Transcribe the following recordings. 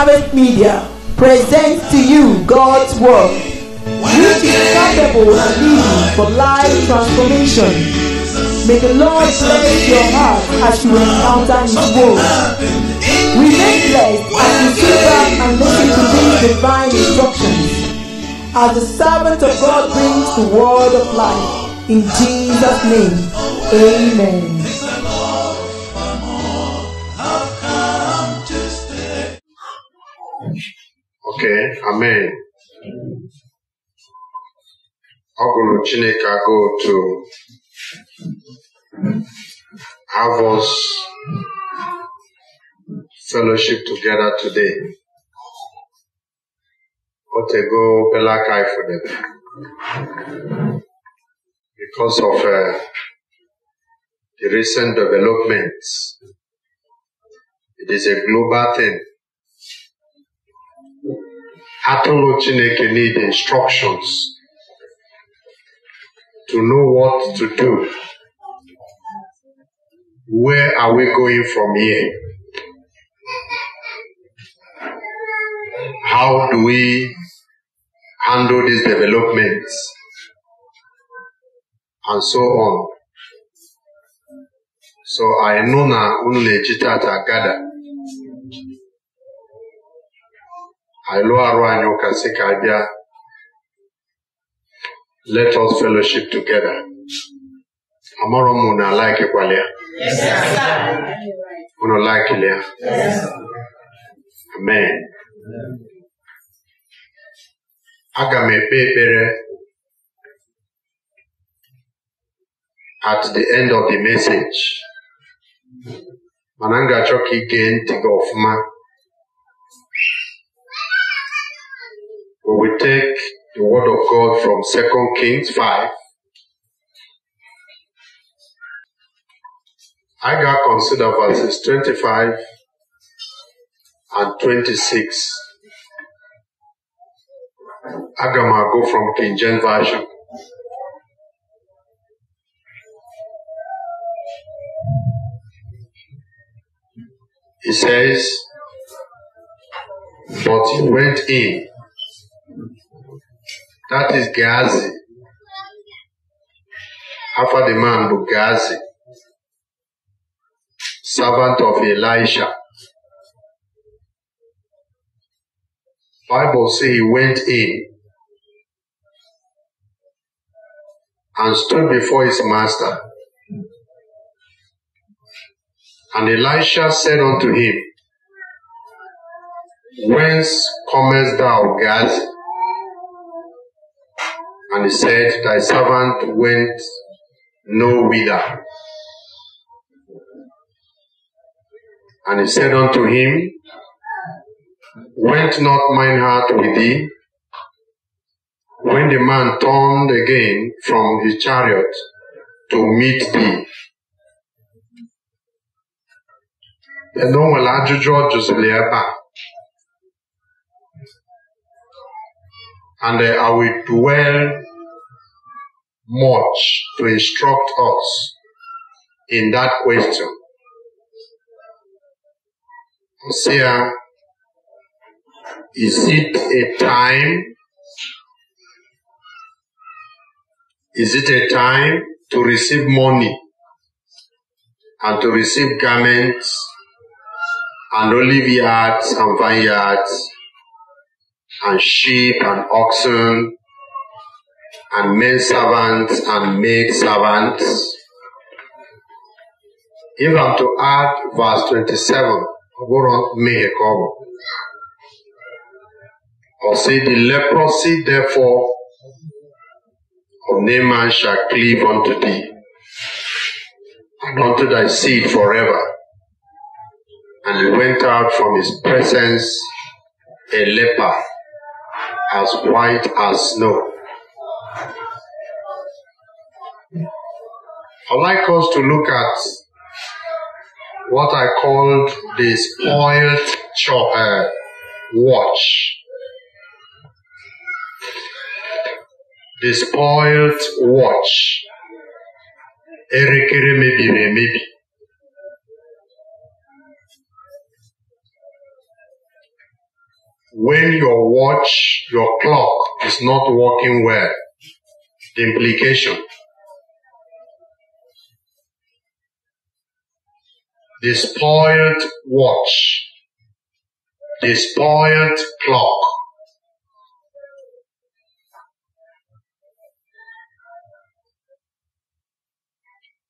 Harvest Media presents to you God's Word, which is capable of leading for life transformation. May the Lord bless your heart as you encounter His Word. Remain blessed as you sit back and listen to these divine instructions. As the servant of God brings the word of life, in Jesus' name, amen. Okay, amen. Ọ bụrụ Chineke to have us fellowship together today. Otego for them Because of uh, the recent developments, it is a global thing atụrụ chineke need instructions to know what to do where are we going from here how do we handle these developments and so on so I know na unu na-eji I lụọ arụ anyị ụka sị ka a bịa let us fellowship together amụrụ m na laikikwala ya unu laikili ya amen aga m ekpe ekpere at the end of the message mana m ga-achọ ka ị ntị gị ọfụma We take the word of God from 2 Kings 5. Agar consider verses 25 and 26. Agama go from King James Version. He says, But he went in that is Gazi. After the man, but servant of Elisha. Bible says he went in and stood before his master. And Elisha said unto him, Whence comest thou, Gazi? And he said, Thy servant went no whither. And he said unto him, Went not mine heart with thee? When the man turned again from his chariot to meet thee. and no will ajụjụ ọ jụziri And I will dwell much to instruct us in that question. Hosea, is it a time? Is it a time to receive money and to receive garments and olive yards and vineyards and sheep and oxen and men servants and maid servants. If I'm to add verse 27, go on Or say the leprosy therefore of Naaman shall cleave unto thee and unto thy seed forever. And he went out from his presence a leper as white as snow. I'd like us to look at what I called the spoiled chopper uh, watch. The spoiled watch. When your watch, your clock is not working well, the implication despoiled spoiled watch, despoiled spoiled clock.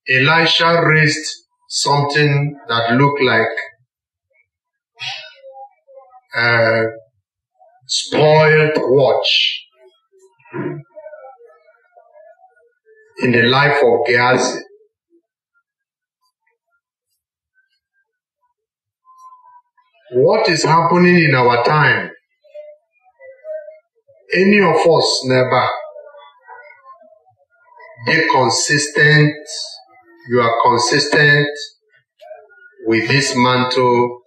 Elisha raised something that looked like a spoiled watch in the life of Gehazi. what is happening in our time, any of us never be consistent. You are consistent with this mantle.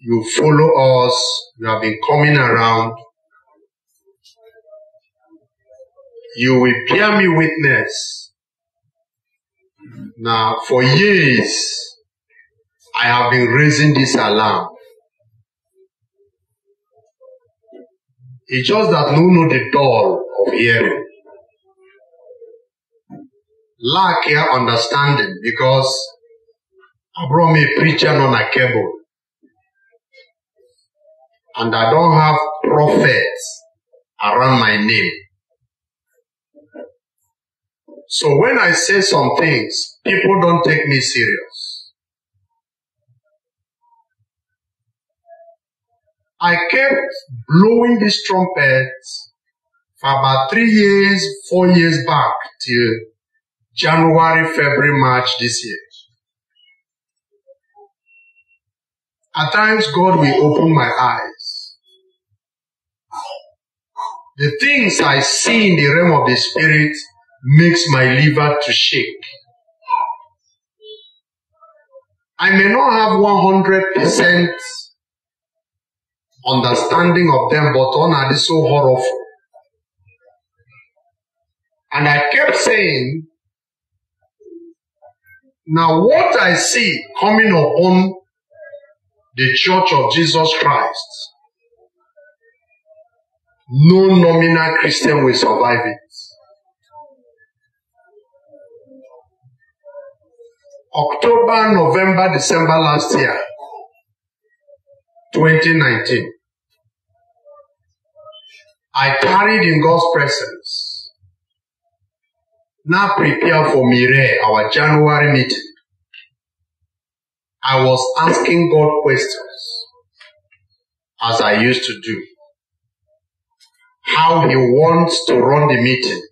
You follow us. You have been coming around. You will bear me witness. Now, for years, I have been raising this alarm. It's just that no know the dull of hearing. Lack here understanding because I brought me a preacher on a cable. And I don't have prophets around my name. So when I say some things, people don't take me serious. I kept blowing this trumpet for about three years, four years back till January, February, March this year. At times, God will open my eyes. The things I see in the realm of the spirit makes my liver to shake. I may not have 100% understanding of them, but on are they so horrible? And I kept saying, now what I see coming upon the church of Jesus Christ, no nominal Christian will survive it. October, November, December last year, 2019. I tarried in God's presence. Now prepare for Mire, our January meeting. I was asking God questions as I used to do. How he wants to run the meeting.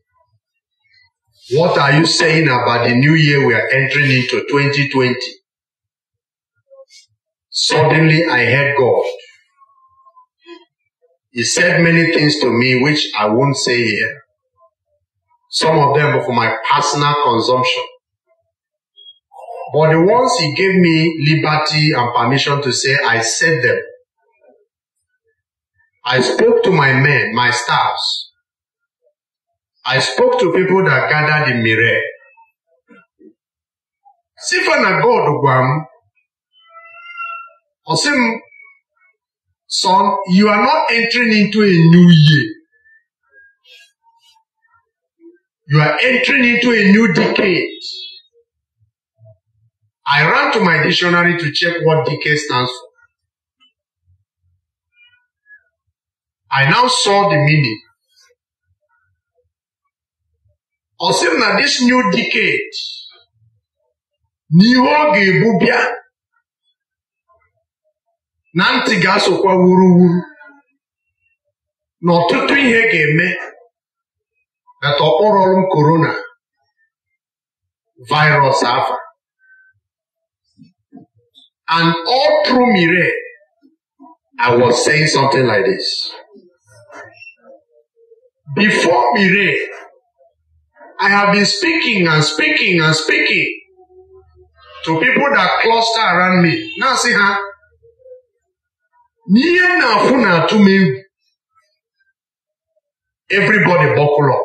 What are you saying about the new year we are entering into 2020? Suddenly I heard God. He said many things to me which I won't say here. Some of them were for my personal consumption. But the ones he gave me liberty and permission to say, I said them. I spoke to my men, my staffs. I spoke to people that gathered in Mire. Sifana God Or say, son, you are not entering into a new year. You are entering into a new decade. I ran to my dictionary to check what decade stands for. I now saw the meaning. Ọ sị na this new decade n'ihe ọ ga-ebu bịa na ntị ga-asụkwa wuruwuru na ọtụtụ ihe ga-eme nata ọkpọrọrụ m korona virus and all through mire I was saying something like this before mire I have been speaking and speaking and speaking to people that cluster around me na see, ha n'ihe m na-akwụ na-atụ m egwu everybody bọkụlọ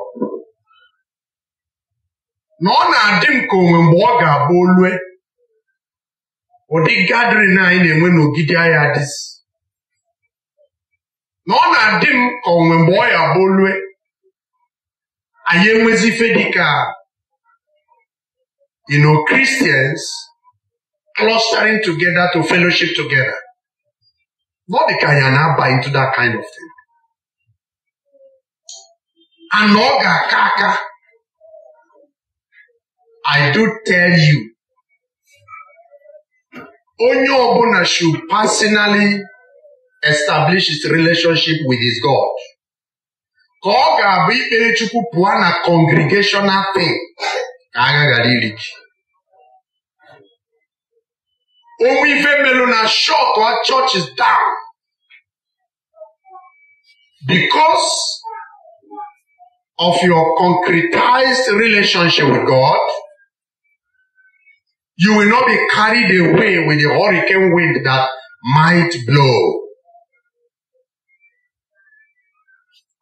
na ọ na-adị m ka onwe mgbe ọ ga-abụ olue ụdị gadrin anyị na-enwe n'ogidi agha dịzi na ọ na-adị m ka onwe mgbe ọ ya abụ olue anyị enwezi ife dịka you know Christians clustering together to fellowship together Not the kind na buy into that kind of thing. And ọ ga-aka aka. I do tell you. Onye ọbụla should personally establish his relationship with his God. Ka ọ ga-abụ ikpere Chukwu pụọ na congregational thing ka agha ghara iri Omwive Melona short, our church is down. Because of your concretized relationship with God, you will not be carried away with the hurricane wind that might blow.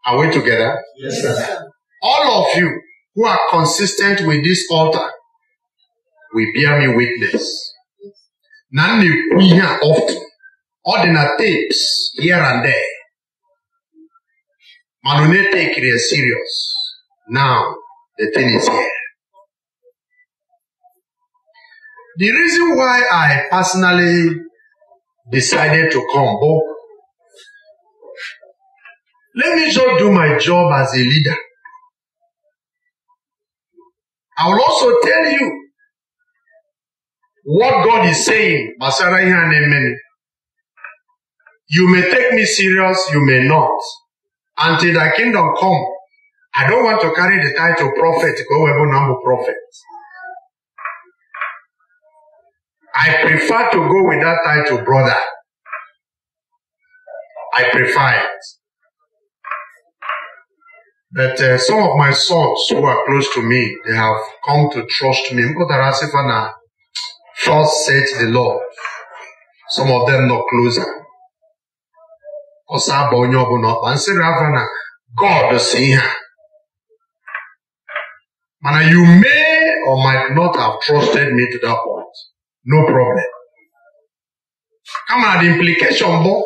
Are we together? Yes, sir. All of you who are consistent with this altar will bear me witness na m na-ekwu ihe a ọfụ ọ dị na tapes here and there mana ọ na-etekiri ya serious now the thing is here. The reason why I personally decided to come bụ let me just do my job as a leader. I will also tell you what God is saying gbasara ihe a na you may take me serious you may not until thy kingdom come I don't want to carry the title prophet ka o wee bụ na prophet I prefer to go with that title brother I prefer it but uh, some of my sons who are close to me they have come to trust me mpụtara sịfa na Thus set the Lord. Some of them not closer. Ọsọ aba onye ọbụla ọkpa nsịrị afọ na God si ihe a. you may or might not have trusted me to that point. No problem. Come the implication boy.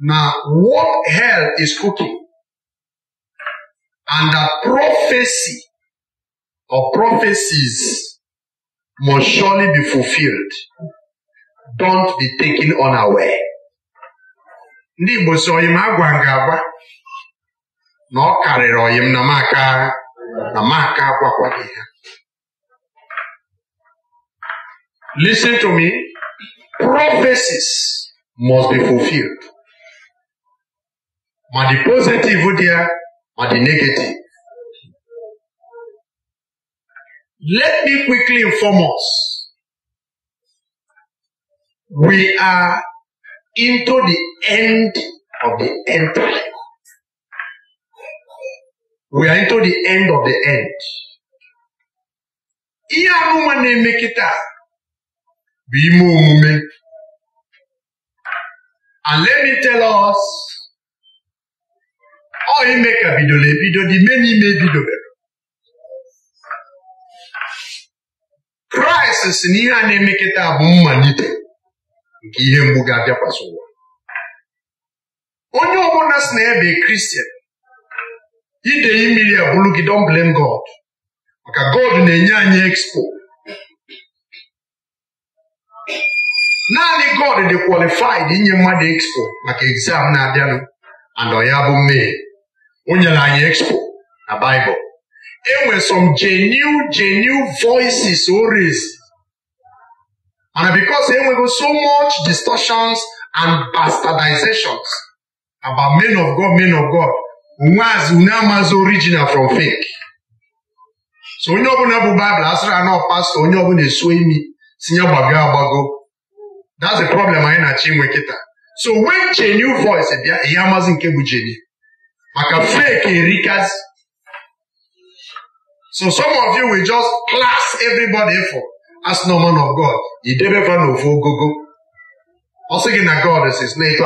Now, what hell is cooking and that prophecy or prophecies must surely be fulfilled. Don't be taken unaware. Ndị Igbo si oyim agwa m agba na ọ karịrị oyim na maka na maka agwakwaghị ha. Listen to me. Prophecies must be fulfilled. Ma the positive there, ma the negative. Let me quickly inform us. We are into the end of the end time. We are into the end of the end. Ihe amụma na-eme kịta bụ ime omume. And let me tell us, ọ ime ka bidoro ebido dị ime n'ime ebidobere. kraịst si na ihe a na-emeketa bụ mmalite nke ihe mgbu ga-abịakwasị ụwa onye ọbụla si na ebe kristian ide mmiri abụrụ gị don blame god maka god na-enye anyị expo naanị god dị kwalifid inye mmadụ expo maka egzam na-abịanụ and ya bụ mee o nyere anyị expo na baịbụl enwe some genuine genuine voices always and because enwego so much distortions and bastardizations about men of God men of God nwaz unu original from fake so onye ọbụla bụ Bible asịrị anọ pastọ onye ọbụla esuo imi tinye gbago agbago that's the problem anyị na-achọ inwe so wey genuine voice bịa ihe amazi nke bụ jeni maka fake erikazi So some of you will just class everybody for as no man of God. Idebeba na ofu go. I'm gị that God is His name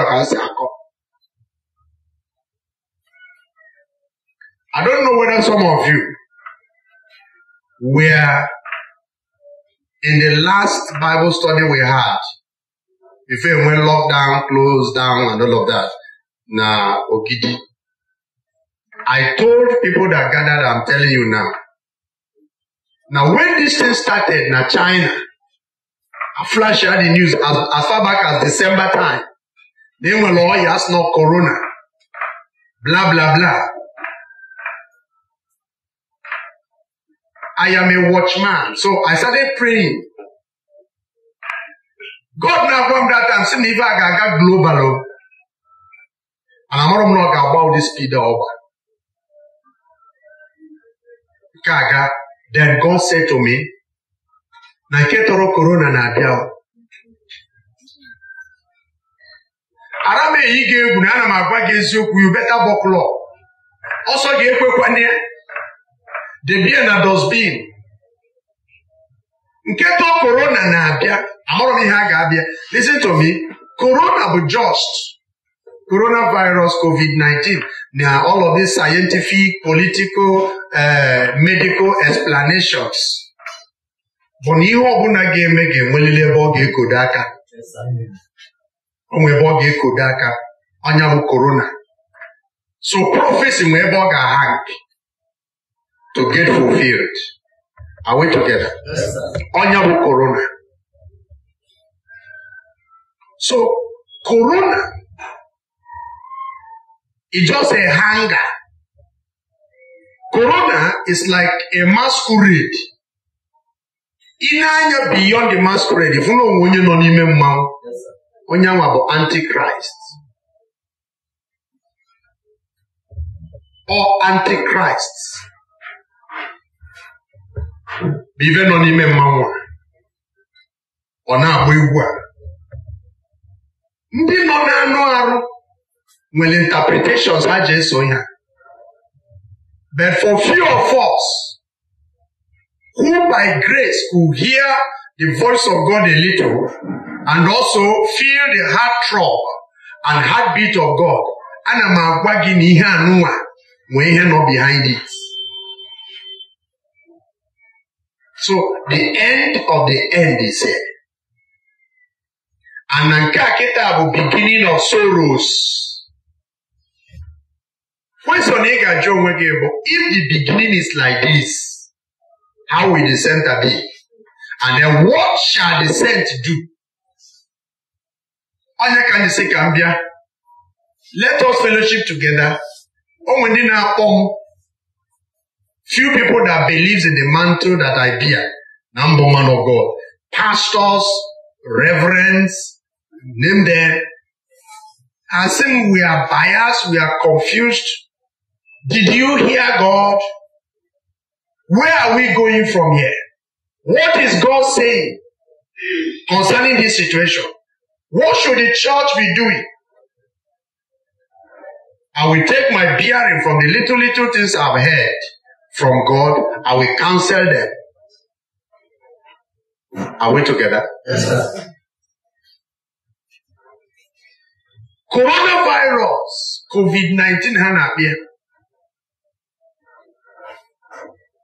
I don't know whether some of you were in the last Bible study we had, if it went lockdown, closed down, and all of that, Now, Okidi. I told people that gathered, I'm telling you now, now, when this thing started, now China, I flash out the news as, as far back as December time. Then we all oh, yes, no corona. Blah, blah, blah. I am a watchman. So I started praying. God now from that time, see me if I got global. Oh. And I'm not going to about this speed over. Kaga. Then God said to me, na nke tọrọ korona na-abịa ara m eyi gị egwu na ana m agwa gị eziokwu you beta buckle ọsọ ga ekwekwanye ya debie na dosbin. nke tọọ korona na-abịa amụrụ m ihe a ga-abịa listen to me korona bụ just coronavirus covid-19 na all of these scientific political uh, medical explanations bụ na ihe ọbụla ga-eme ga-enwelili ebe ọ ga-ekodo aka onwe ebe ọ ga-ekodo aka ọnya bụ korona so prophecy nwe ebe ọ ga-ahang to get fulfilled are we together ọnya bụ korona so korona It's just a hanger. Corona is like a masquerade. Ine anya beyond the masquerade, fụna onwe onye nọ n'ime mmanwụ, onye anwa bụ antichrist. Or antichrist. Bụ nọ n'ime mmanwụ a, ọ na-agba egwu a. Ndị nọ n'anụ arụ nwere interpretations ha ji eso ihe but for few of us who by grace could hear the voice of God a little and also feel the heart throb and heartbeat of God ana m agwa gị na ihe anụnwa nwee ihe nọ behind it so the end of the end is here and na nke a kịta bụ beginning of sorrows Question ị ga-ajụ onwe gị bụ if the beginning is like this, how will the center be? And then what shall the center do? Onye ka anyị sị ka m bịa? Let us fellowship together. O nwere ndị na-akpọ m few people that believes in the mantle that I bear na mbụ man of God. Pastors, reverends, name them. Asim, we are biased, we are confused, did you hear God? Where are we going from here? What is God saying concerning this situation? What should the church be doing? I will take my bearing from the little, little things I've heard from God. I will counsel them. Are we together? Yes, sir. Coronavirus, COVID 19 had appeared.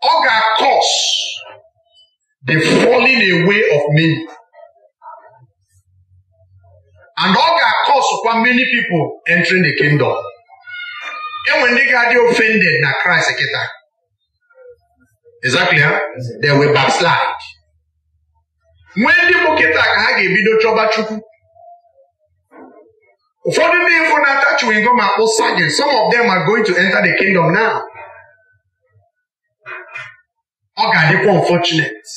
ọ ga-akọs the falling away of many and ọ ga kwa many people entering the kingdom enwere ndị ga-adị offended na Christ kịta exactly ha they will backslide nwee ndị bụ kịta ka ha ga-ebido chọba Chukwu ụfọdụ ndị ịfụ na-ata chewing gum akpụ some of them are going to enter the kingdom now ọ ga-adịkwa unfortunate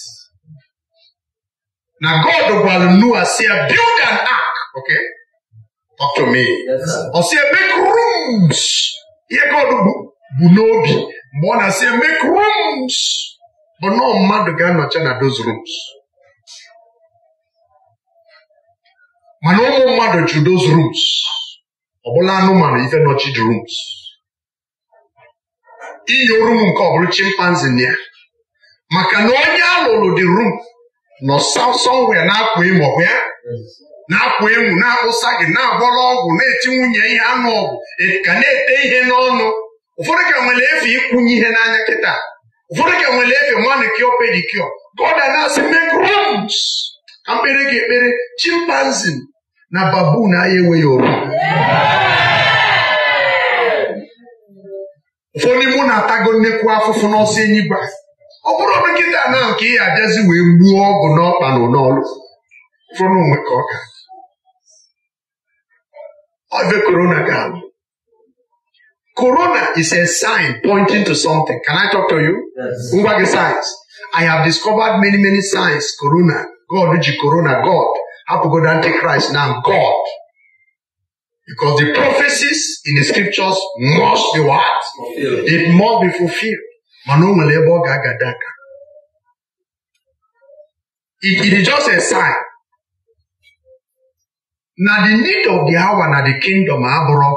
na God gwara Noah si ya build an ark ok. talk to me ọ make rooms ihe God bu n'obi mgbe ọ na-asị make rooms bụ na mmadụ ga-anọcha na those rooms mana ụmụ mmadụ ju those rooms ọ bụla anụmanụ ife nọchid rooms iyi oru m nke ọ bụrụ chimpanzee na ya maka na onye alụlụ lụrụ dị rum nọ sọsọnwe na-akwa emo ya na-akwa emu na-akpụsa gị na-abọrọ ọgwụ na-eti nwunye ihe anụ ọgwụ ka na-ete ihe n'ọnụ ụfọdụ ka nwere efe ịkwụnye ihe n'anya kịta ụfọdụ ka nwere efe manikio pedikio God na-asị make ka mkpere gị ekpere chimpanzee na babu na enweghị oru ụfọdụ mụ na-atago nnekwu afụfụ n'ọsọ gbaa. ọ bụrụ dọkịta na nke ị abịazi wee gbuo ọgwụ n'ọkpa na n'ọlụ fụrụ onwe ka ọ ga ọve korona ga-alụ korona is a sign pointing to something can I talk to you? ngwa gị signs I have discovered many many signs corona God ji corona God hapụgodo antichrist na God because the prophecies in the scriptures must be what? It must be fulfilled mana o nwere ebe ọ ga-agada it is just a sign na the need of the hour na the kingdom abụrụ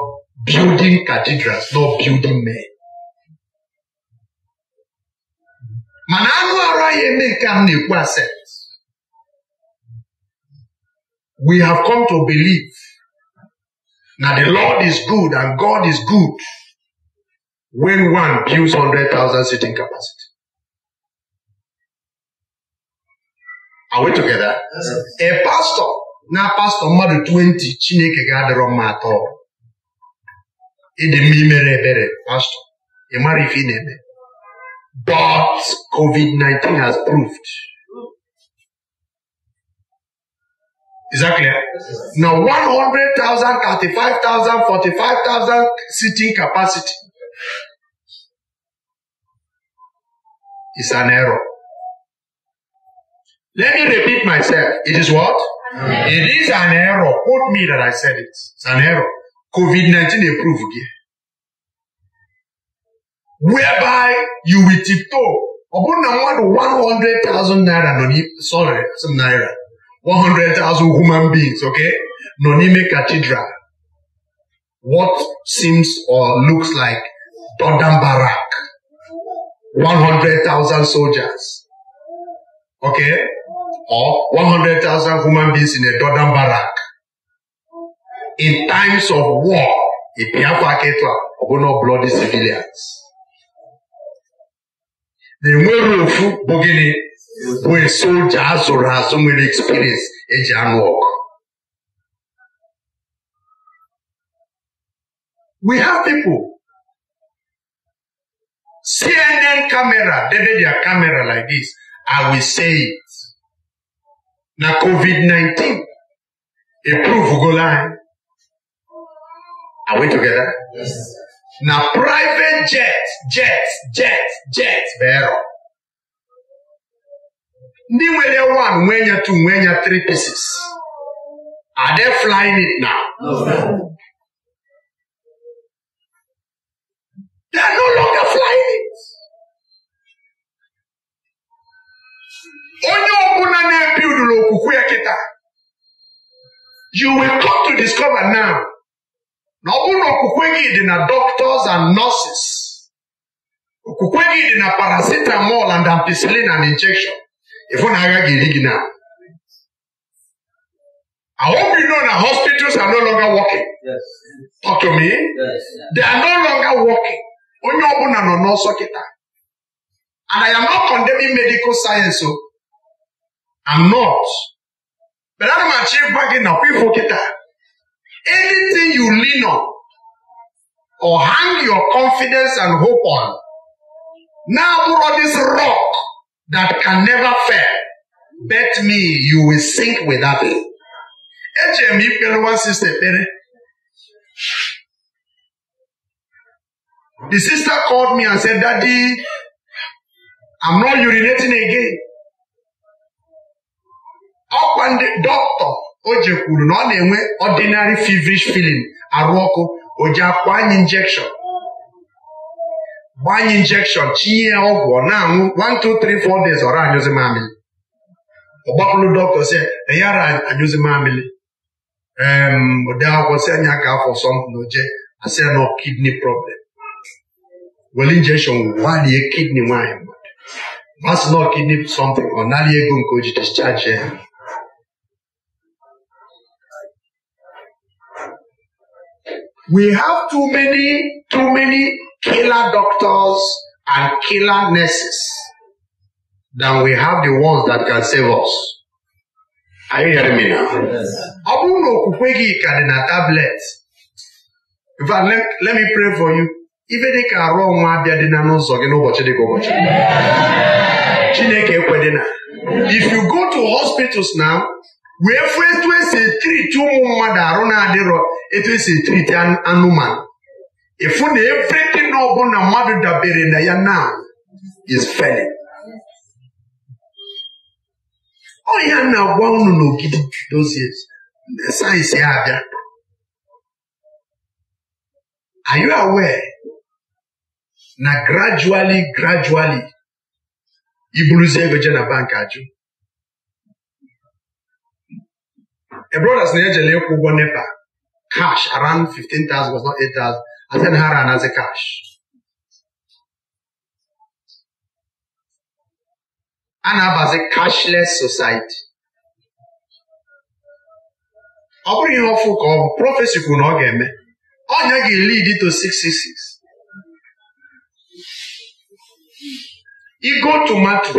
building cathedrals not building men mana anụ arụ anyị eme nke a m na-ekwu we have come to believe na the Lord is good and God is good when one builds 100,000 seating capacity. Are we together? Yes. A pastor, now pastor mmadụ 20 Chineke ga-adịrọ mma atọ. It's a imere ebere pastor, ị mara But COVID-19 has proved. Is that clear? Now 100,000, 35,000, 45,000 seating capacity. is an error. Let me repeat myself. It is what? It is an error. Quote me that I said it. It's an error. COVID 19 approved here. Whereby you will tiptoe. about 100,000 naira, no sorry, some naira. 100,000 human beings, okay? Nonime Cathedral. What seems or looks like Dodam Barak. 100,000 soldiers, okay, or 100,000 human beings in a Jordan barrack. In times of war, a Biafra Ketra will not bloody civilians. The nwere ofu bụ gịnị bụ soja azụrụ azụ nwere experience eji anụ ọgụ. We have people CNN camera debe their camera like this I will say it na COVID-19 go anyị are we together? Yes. na private jet jet jet jet bero ndị nwere one nwee nya two nwee nya three pieces are they flying it now? No. They are no longer flying it. Onye ọbụla na-ebildụrụ okwukwe ya kịta you will come to discover now na ọ bụrụ okwukwe gị dị na doctors and nurses okwukwe gị dị na paracetamol and ampicillin and injection ịfụ na agha ga-eri gị na I hope you know that hospitals are no longer working. Yes. Talk to me. Yes. They are no longer working. onye ọbụla nọ n'ọsọ kịta and I am not condemning medical science i oh. I'm not but ana m achọ ịgwa gị na kwifo kịta anything you lean on or hang your confidence and hope on na-abụrọ this rock that can never fail bet me you will sink without it echere m ikpere one sister ekpere The sister called me and said, Daddy, I'm not urinating again. ọkwa ndị dọkịta o ji kwuru na ọ na-enwe ordinary feverish feeling arụ ọkụ o ji akwa anyị injection gbaa anyị injection chinye ọgwụ ọ na-anwụ 1 2 3 4 days ọra anyụzi mamili ọ gbapụrụ dọkịta si yara anyụzi mamịlị ode akwụkwọ si anya ka afọ sọmpụ na oje asị na kidney problem Well, injection gbalie kidney nwanyị mmadụ basilọ kidney something ọ nara ego nke o discharge ya we have too many too many killer doctors and killer nurses than we have the ones that can save us. Are you hearing me now? Ọ bụrụ na okwukwe gị ka dị na tablet, in fact, let, let me pray for you. ibe dịka ka arụ ọnwa abịa dị na n'ụzọ gị n'ụbọchị dị ka ụbọchị Chineke na if you go to hospitals now wee fụ etu esi etriti ụmụ mmadụ arụ na-adịrọ etu esi etriti anụmanụ efu na everything ọbụla mmadụ dabere na ya now is ọ ya na-agwa unu n'ogidi dozie ndị sayensị ya abịa are you aware na gradually grajuali iburuzie ego je na bank ajụ ebrodas na-ejele ịkwụ ụgwọ nepa cash around 15,000 was not 8,000 asị ha ra anazi cash a na-abazi cashless society ọ bụrụ ihe ọfụ ka ọ bụ prọfesi kwuru na ọ ga-eme ọnya ga-elid to 666 Ego tomato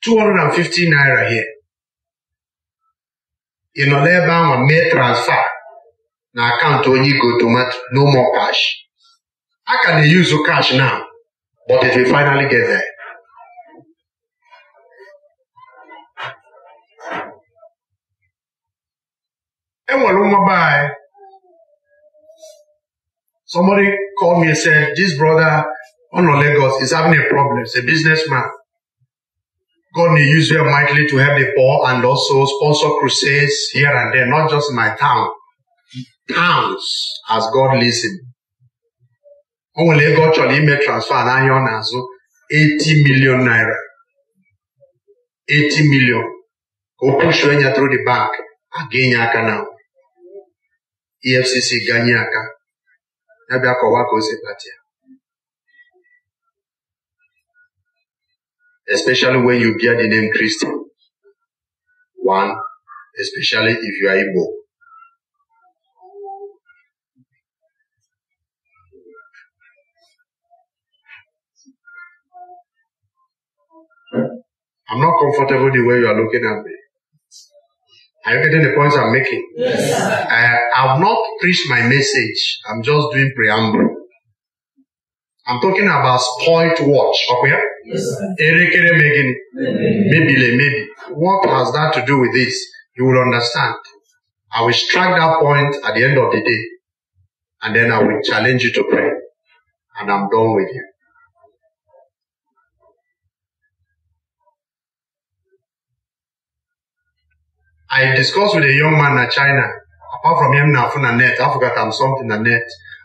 250 naira here. Ị nọ n'ebe ahụ mee transfer na akaụntụ onye igo tomato no more cash. A ka na-eyuzu cash now but it will finally get there. enwere nwa be anyị somebody called me and said this brother Ono Lagos is having a problem. He's a businessman. God may use very mightily to help the poor and also sponsor crusades here and there, not just in my town. Towns as God leads him. O nwere ego ọ transfer n'ahịa ọ million naira. 80 million. Ka push pushuo ya through the bank, again. ga-enye EFCC ganye aka. Ya bịa kọwaa especially when you bear the name Christian. One, especially if you are Igbo. I'm not comfortable the way you are looking at me. Are you getting the points I'm making? Yes. I, I have not preached my message. I'm just doing preamble. I'm talking about spoilt watch. Okay? Yes, Erekere Megin. Maybe, maybe. What has that to do with this? You will understand. I will strike that point at the end of the day. And then I will challenge you to pray. And I'm done with you. I discussed with a young man in China. Apart from him, net, I forgot I'm something the net.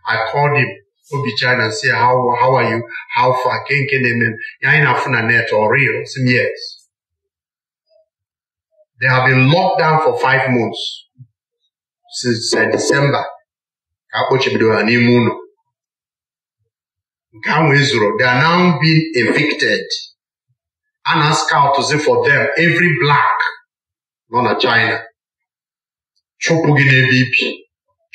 I called him obi china and say how how are you how far can can them yaina funa net or real some years they have been locked down for five months since uh, december ka akpọchibidoro ha n'ime ụlọ nke ahụ ezuru they are now being evicted a na scoutzi for them every black nọ na china chụpụ gị n'ebe ibi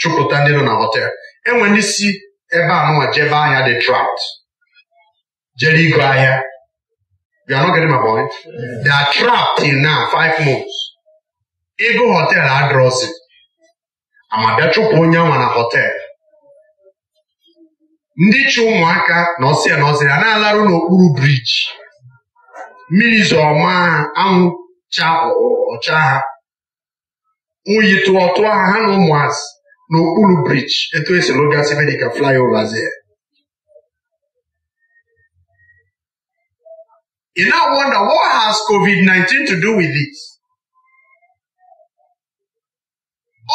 chụpụta ndị nọ na họtel enwere ndị si ebe a nụwa jebe ahịa dị trapped jere igo ahịa ego are not getting my in five months hotel adrọsị amabịa chụpụ onye nwa na hotel ndị chụ ụmụaka na ọsịa na ọsịa na-alarụ n'okpuru briji mmiri zọọma ha anwụ cha ọcha ha oyi ha ha na ụmụazị n'okpuru briji etu esi lụgasị medika flyovers ya You now wonder what has COVID-19 to do with it?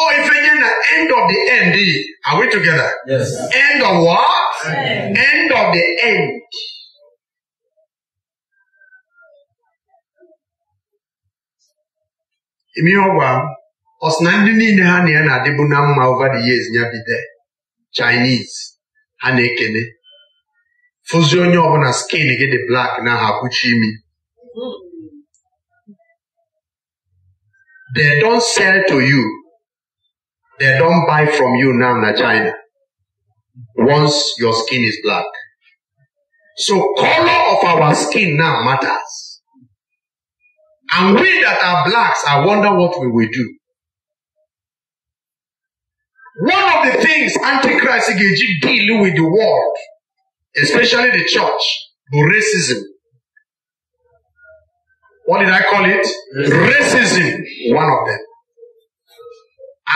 Oh, if again the end of the end, eh? are we together? Yes. End of what? End. end of the end. Imi ọgwa ọsịna ndị niile ha na ya na-adịbu na mma over the years ya bide Chinese ha na-ekene fụzi onye ọbụla skin gị dị black na ha kpuchi imi they don't sell to you they don't buy from you now na China once your skin is black so color of our skin now matters and we that are blacks I wonder what we will do one of the things Antichrist Igeji deal with the world, especially the church, the racism. What did I call it? Racism. One of them.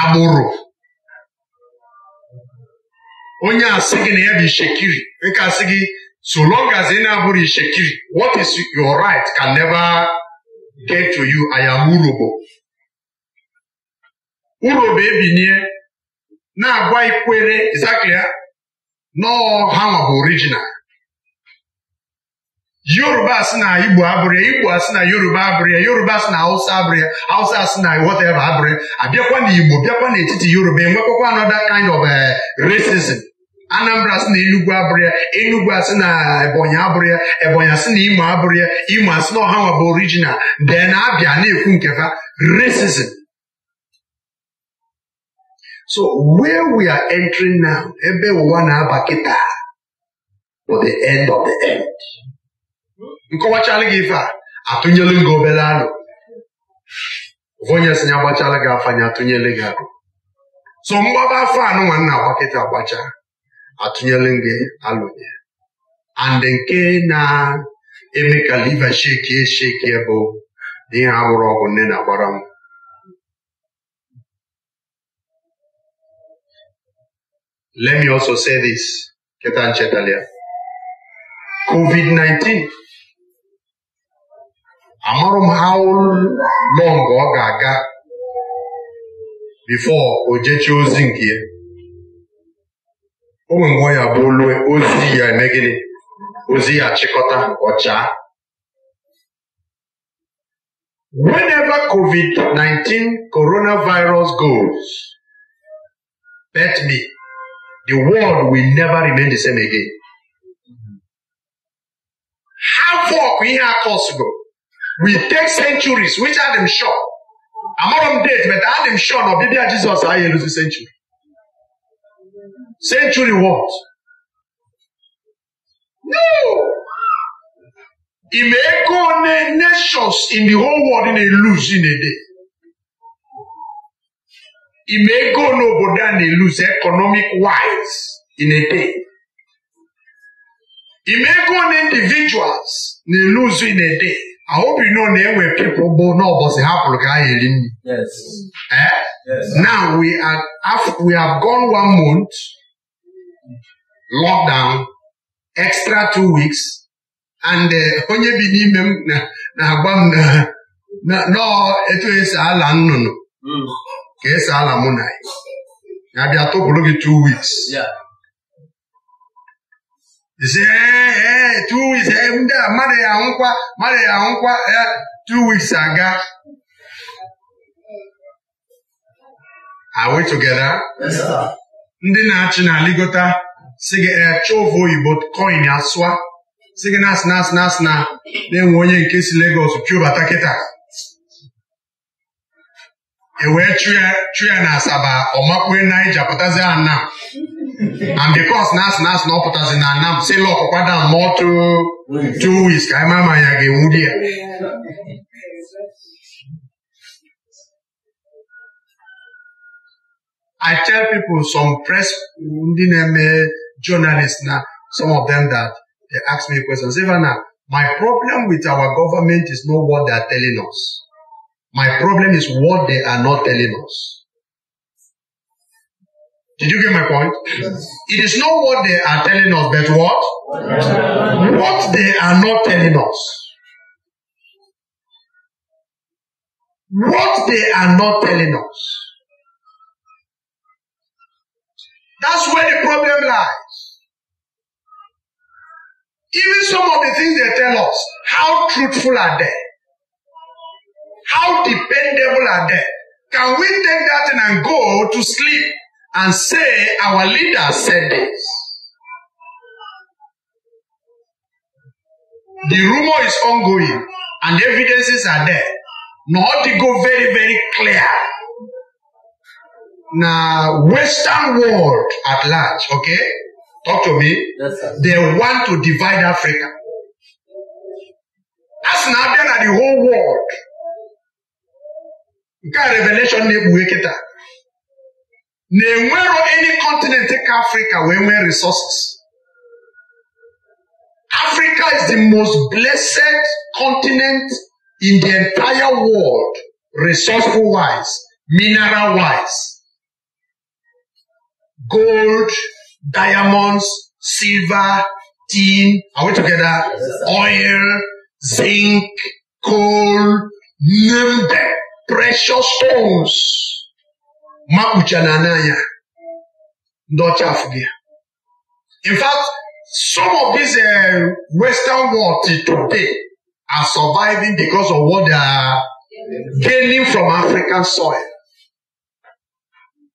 Aburu. Onye asigi na ya bụ ishekiri, nke so long as ị na-abụrụ ishekiri, what is your right can never get to you. I am urobo. Urobo ebinye na-agwa ikwere exactly nọọ ha bụ original yoruba si na igbo abụrịa igbo asị na yoruba abụrịa yoruba asị na hausa abụrịa hausa asị na whatever abụrụ ya abịakwa na igbo bịakwa n'etiti yoruba enwekwakwa another kind of eh, racism anambra asị na enugu abụrịa enugwu enugu asị na ebonyi abụrịa ebonyi asị na imo abụrịa imo asị na ọha nwa bụ original then abịa na-ekwu ha racism So where we are entering now, ebe ụwa na-aba kịta for the end of the end. nkọwachala gị ife a atụnyelu gị obere alụ onye si ya gbachala gị afa anya atụnyele gị alụ so mgbaba afọ anụ nwanna agbakịta kịta agbacha atụnyelu gị alụ and nke na-eme ka liva sheki esheki bụ na ihe anwụrụ ọgwụ nne na-agbara m Let me also say this, keta nchetalia COVID-19 amụrụ m how long ọ ga-aga before o jechie ozi nke ya o nwere ya bụ olue ozi ya eme ozi ya chịkọta ọcha whenever COVID-19 coronavirus goes bet me the world will never remain the same again. How far we have possible? We take centuries, which are them sure. not on date, but I am sure of baby Jesus I lose the century. Century what? No! It may go nations in the whole world in a lose in a day. ime ego n'obodo a na eluse economic wise in a day ime ego na individuals na eluzu in a day you know na-enwe people bụ n'ụbọchị hapụrụ ka ha eri nri now we are we have gone one month lockdown extra two weeks and onye bi n'ime m na-agwa m na etu esi ala nnụnụ ka esi ala mụ na ya bịa tụpụrụ gị two weeks isi ee two weeks ndị a mmadụ ya nkwa mmadụ ya nkwa ya two weeks aga are we together ndị na-achị na Aligota si gị chọvụ oyibo coin asụa si gị na-asị na-asị na-asị na na-enwe onye nke si legos chụbata kịta e wee na asaba anam and na asị na asị na ọ pụtazi na anam si ka ịma ma ya ga ya I tell people some press ndị na-eme journalists na some of them that they ask me questions even now, my problem with our government is not what they are telling us my problem is what they are not telling us. Did you get my point? Yes. It is not what they are telling us, but what? What they are not telling us. What they are not telling us. That's where the problem lies. Even some of the things they tell us, how truthful are they? How dependable are they? Can we take that and go to sleep and say, Our leader said this? The rumor is ongoing and evidences are there. Not to go very, very clear. Now, Western world at large, okay? Talk to me. Yes, They want to divide Africa. That's now then at the whole world nke a revelation na-ekpughe kịta na-enwero any continent ka afrịka wee nwee resources africa is the most blessed continent in the entire world resourceful wise mineral wise gold diamonds silver tin are we together oil zinc coal name them precious stones makpuchana na in fact some of these uh, western world today are surviving because of what they are gaining from african soil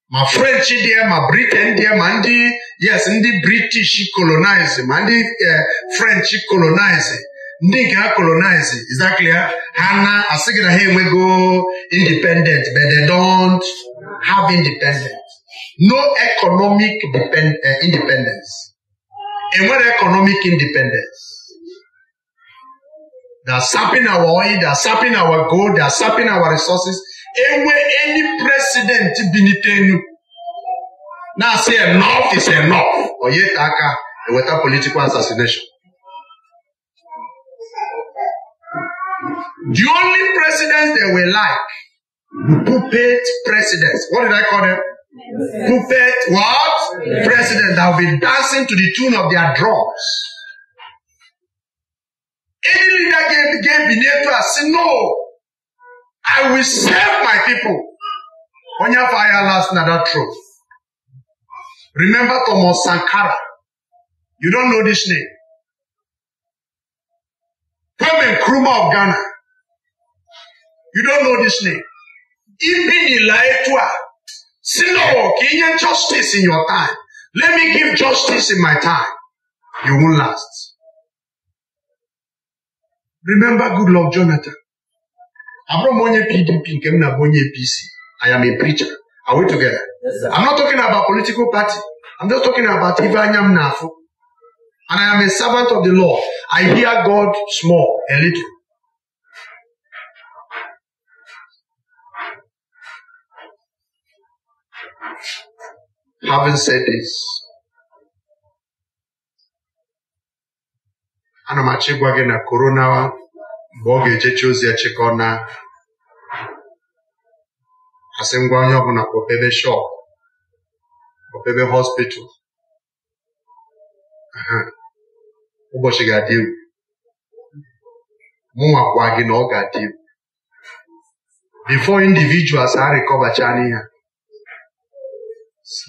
My french dị my britain dị ma ndị yes ndị british colonizing, ma the, uh, french colonizing ndị nke a colonize is that clear ha na-asị gị na ha enwego independent but they don't have independent no economic eh, independence enwere economic independence they're sapping our oil they're sapping our gold they're sapping our resources enwe any president binite enu now asi enough is enough or ta aka political assassination The only presidents they were like puppet presidents. What did I call them? Puppet what? Presidents that have been dancing to the tune of their drums. Any leader gave, gave beneath to us, No, I will save my people. On your fire last another truth. Remember Thomas Sankara. You don't know this name. Kwame Nkrumah of Ghana. You don't know this name. Even Eliatua. Sino, can justice in your time? Let me give justice in my time. You won't last. Remember good Lord Jonathan. Abram onye PDP I m na-abụ I am a preacher. Are we together? Yes, sir. I'm not talking about political party. I'm just talking about Ivanya Mnafu. And I am a servant of the Lord. I hear God small, a little. Having said this, m achọ ịgwa gị na korona mgbe ọ ga ejecha ozi ya na asị ngwa onye ọbụla kpọpebe shop kpọpebe hospital ụbọchị ga-adị egwu mụnwa gwa gị na ọ ga-adị egwu before individuals ha rịkọbacha n'ihe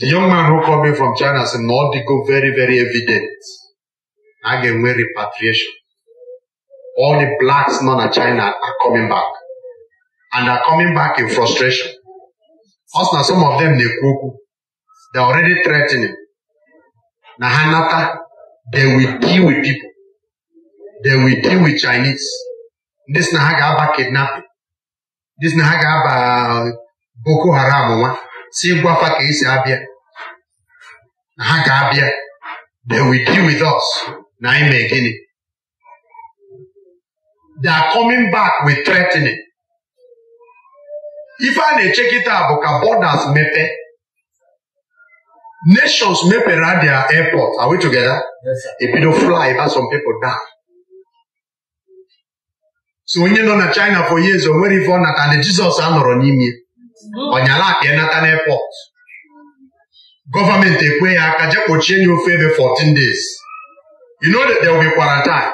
The young man who called me from China said, No, they go very, very evident. I get away repatriation. All the blacks known in China are coming back. And are coming back in frustration. Also, some of them, they cuckoo. They're already threatening. Nahanata, they will deal with people. They will deal with Chinese. This Nahagaba kidnapping. This Nahagaba Boko Haram one. si gwafa ka esi abịa na ha ga-abịa they will deal with us na anyị mee gịnị they are coming back with threatening ife a na-eche kịta bụ ka borders mepe nations mepere their airport are we together ebido fly by some people die. so onye nọ na China for years o nwere ife ọ natana Jizọs anọrọ n'ime ọnyala akpa ya nata n'epọt gọọmenti ekwe ya aka jee kpochie ya ofe ebe 14 days you know that there will be quarantine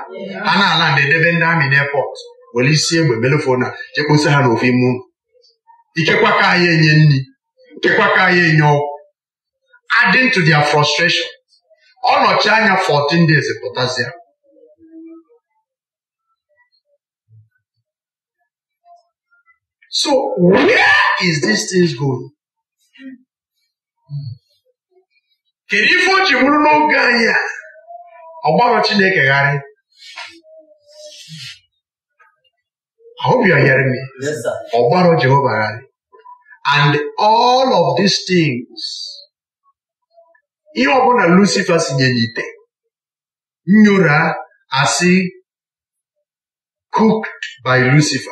a na-ala ndị edebe ndị amị n'epọt were isi egbe belefona jekposa ha n'ofe ime ụlọ ikekwa ka anyị enye nri ikekwa ka anyị enye ọgwụ adding to their frustration ọ nọchi anya 14 days pụtazia So where is this thing going? Can you find you will know Gaia? About what you make a guy? I hope you are hearing me. Yes, sir. Jehovah. And all of these things, you are going to Lucifer Sinyanite. Nura, as he cooked by Lucifer.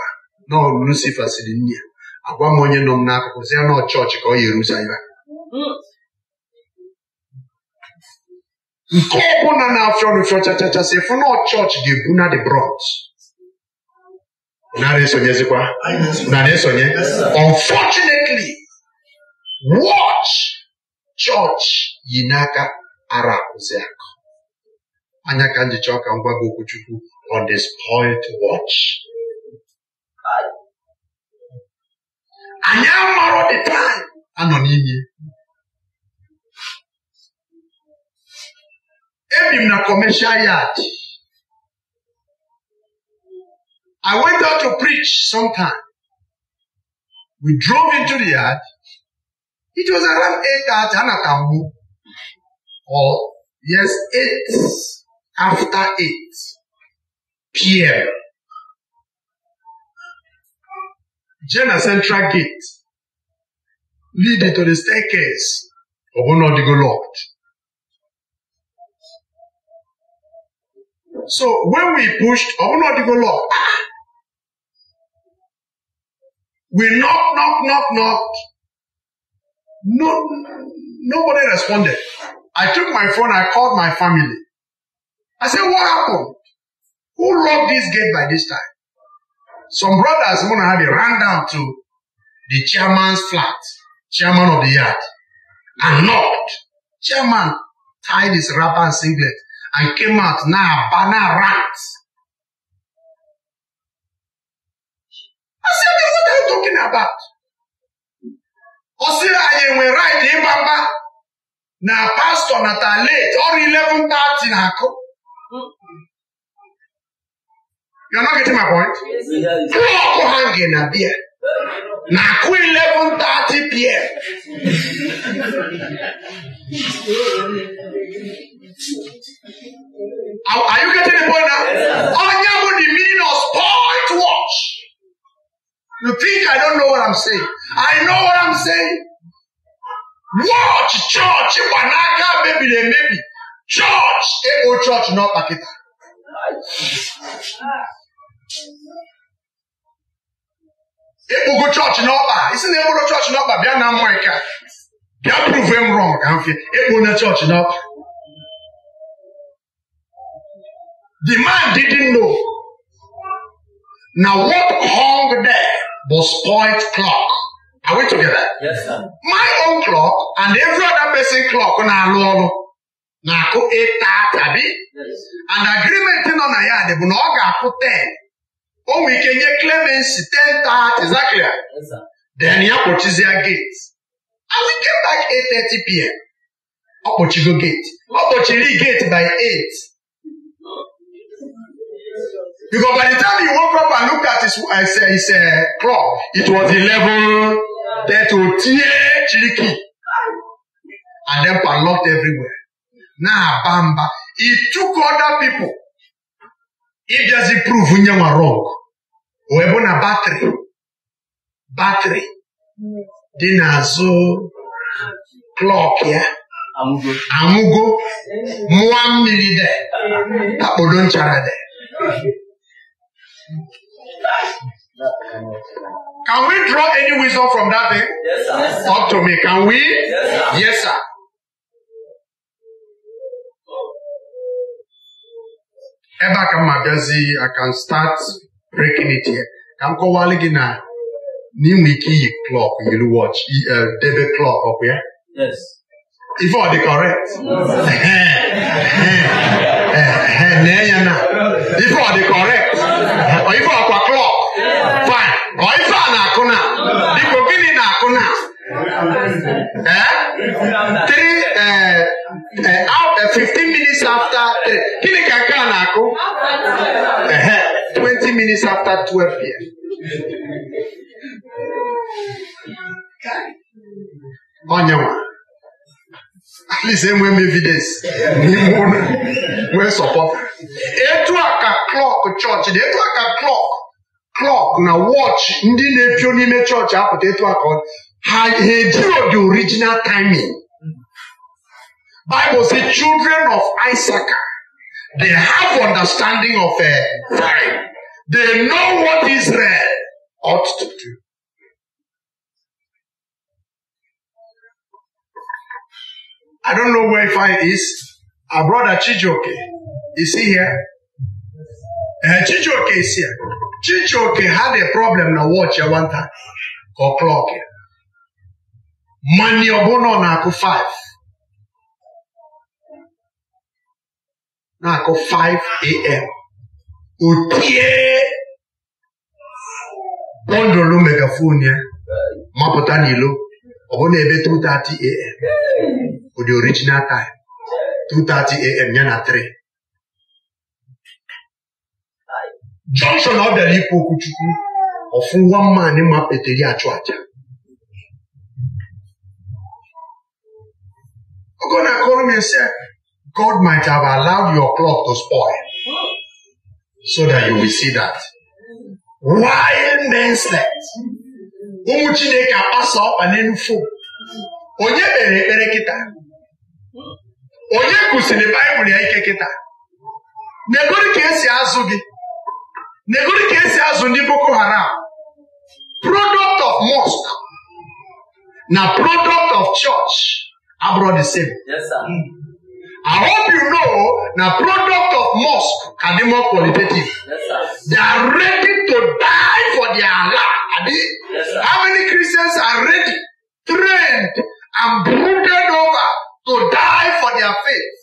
na Lucifa siri nne ya agwa m onye nọ m n'akụkụ si ya na ọchọọchị ka ọ ga-erusa ya nke ọbụla na-afịọ nụfịọ chachachasị fụ na ọchọọchị ga na the bronze narị esonyezikwa narị esonye unfortunately watch chọọch yi n'aka ara akụzi akụ anya ka njicha ọka ngwa gwa gị okwu Chukwu on the spoiled anyị amarọ the time anọ n'ime ebi m na commercial yard I went out to preach sometime we drove into the yard it was around eight at anata mgbu or yes eight after eight pm Jena Central Gate leading to the staircase. of bụ na ọ locked. So when we pushed, ọ bụ na locked. We knock, knock, knock, knock. No, nobody responded. I took my phone, I called my family. I said, what happened? Who locked this gate by this time? some brothers want to have a run down to the chairman's flat, chairman of the yard, and knocked. Chairman tied his wrapper and singlet and came out now banner rant. I said, what are you talking about? Osi anyị nwere right ịgbamba na pastọ natara late ọrụ 11:30 na-akụ. You're not getting my point? in a beer. Na Now, eleven thirty p.m. are, you getting the point now? Yeah. Anya would the meaning of spoiled watch. You think I don't know what I'm saying? I know what I'm saying. Watch church, Iwanaka, maybe they maybe. Church, Ebo church, not Pakita. ịkpụgo chọọchị n'ọkpa isi na ịkpụrụ chọọchị n'ọkpa bịa na America bịa prove m wrong ka mfe ịkpụ na chọọchị n'ọkpa the man didn't know na what hung there was spoiled clock are we together yes, sir. my own clock and every other person clock na-alụ ọrụ na-akụ tabi? and agreement nọ na ya dị bụ na ọ ga-akụ 10 o nwere ike nye clemency ten tat exactly then ya kpọchizie gate and we came back 8:30 pm ọ kpọchigo gate ọ kpọchiri gate by 8 because by the time he woke up and looked at his, his, his uh, clock it was eleven thirty 30 otie chiriki and then padlocked everywhere now bamba he took other people ịbịazi pruvu nye nwa rọng wee bụ na batrị batrị dị n'azụ klọk ya anwụgo mụọ mmiri de akpọdo nchara de Can we draw any wisdom from that thing? Yes, sir. Talk to me. Can we? Yes, sir. Yes, sir. ebe a ka m abịazi I can start breaking it here ka m kọwalụ gị na n'inwe ike iyi klọk yiri wọch debe klọk ọkụ ya ife ọ dị correct nee ya na ife ọ dị correct ife ọkwa klọk ọ ife a na-akụ na biko gịnị na-akụ na eh? Eh, eh, fifteen minutes after gịnị ka nke a na-akụ 20 minutes after twelve p.m. onyenwe at least enwee m evidence n'ime ụlọ nwee etu a ka klọk chọọchị etu a ka klọk clock na watch ndị na-epio n'ime chọọchị apụta etu aka ha ejiro the original timing Bible say children of Isaac they have understanding of a eh, time they know what Israel ought to do I don't know where fire is. Our brother Chijoke, is he here? ee Chijioke isi ya Chijioke had a problem na wọchị ya nwata ka ọ klọk ya mani ọbụna na-akụ 5 na-akụ 5 am otie bọndụlụ megafon ya mapụta n'ilo ọbụna ebe 2:30 am ụdị original time 2:30 am ya na 3 jọnshọn ọ bịara ikwu okwuchukwu chukwu ọfụ nwa mmanị ma peteri achụ aja ogo na-akọrọ m God might have allowed your clock to spoil so that you will see that why men slept ụmụ Chineke akpasa ọkpa n'elu fom onye kpere ekpere kịta onye kụsiri Baịbụl ya ike kịta na ka esi azụ gị negori ka esi azụ ndị boko haram product of mosque na product of church abụrụ the same yes, sir. Hmm. I hope you know na product of mosque can be more qualitative. Yes, sir. They are ready to die for their Allah. Yes, sir. How many Christians are ready, trained, and brooded over to die for their faith?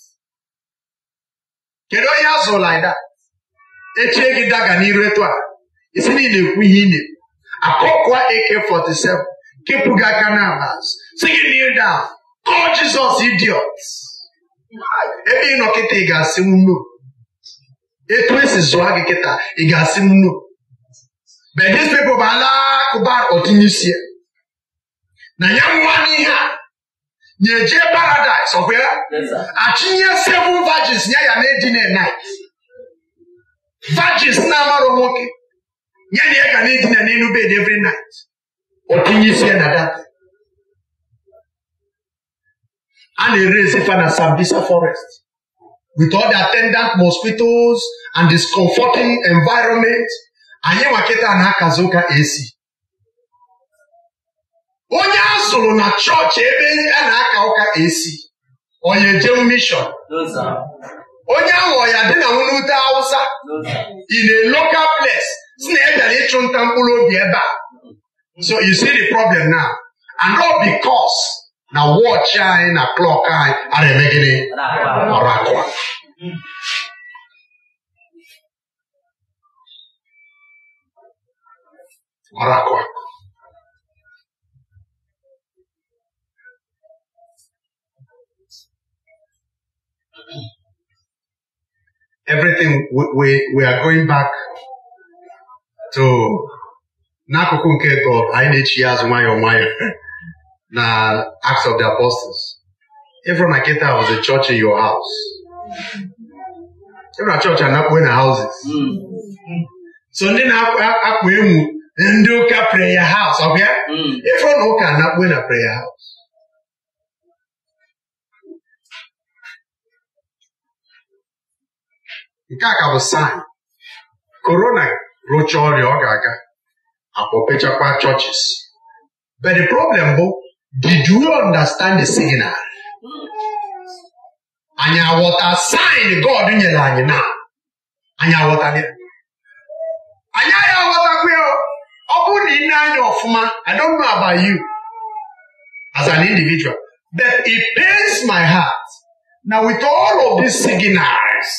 Kedu onye azụ like that? echie gị daga n'iru etu a isi niile ị ekwu ihe ị na-ekwu akọkwa 47 kepụ gị aka n'ala si gị kneel down call Jesus idiot ebe ị nọ kịta ị ga-asị nno etu esi zụa gị kịta ị ga-asị nno but these people ala akụba ọtụnyisi na ya nwa n'ihe a na-eje paradise ọkwa ya achịnye seven virgins ya ya na-edina night virgins na-amarụ nwoke ya na ya ka na-edina n'elu bed every night ọ isi ya na data a na-ere ezifa na Sambisa forest with all the attendant mosquitoes and discomforting environment anyị nwakịta na-akazi ụka esi onye a zụrụ na chọọchị ebe a na-aka ụka esi onye jeu mishon onye aghọ ya dị na nwute Hausa in a local place si na ebịara ịchụ nta mkpụrụ obi ebe a so you see the problem now and all because na wọchị anyị na klọk anyị ara emegide. ọrụ akwa ọrụ akwa everything we, we, we are going back to n'akụkụ nke tọ anyị na-echi ya azụ na Acts of the Apostles ịfụrụ na kịta was a church in your house ịfụrụ a church going to houses so ndị na-akpụ enwu ndị pray your house ọ bịa hmm. can not going to pray prayer house nke a ka bụ saịn korona rụchaa ọrịa ọ ga-aga akpọpechakwa chọọchis but the problem bụ did you understand the signal? anyị aghọta sign God nyere anyị na anyị aghọtala ya anyị agha aghọtakwa ya ọ bụrụ na ị na-anya ọfụma I don't know about you as an individual but it pains my heart na with all of these signals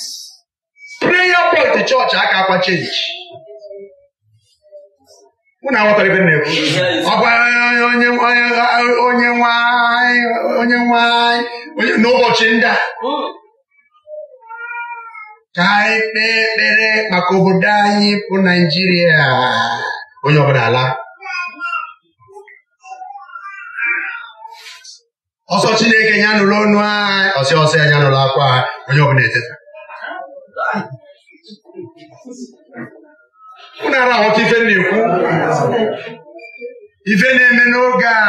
pent chọọchị aka akwa chenji na aghọtara ibe na-ekwu ọ gwara onye nwanyị onye nwanyị n'ụbọchị ndị a ka anyị kpee ekpere maka obodo anyị bụ naijiria onye ọbụla ala ọsọ chineke ya nụrụ ọnụ anyị ọsịọsọ ya nụrụ akwa onye ọbụla eteta unu arahụta ife na-ekwu ife na-eme n'oge a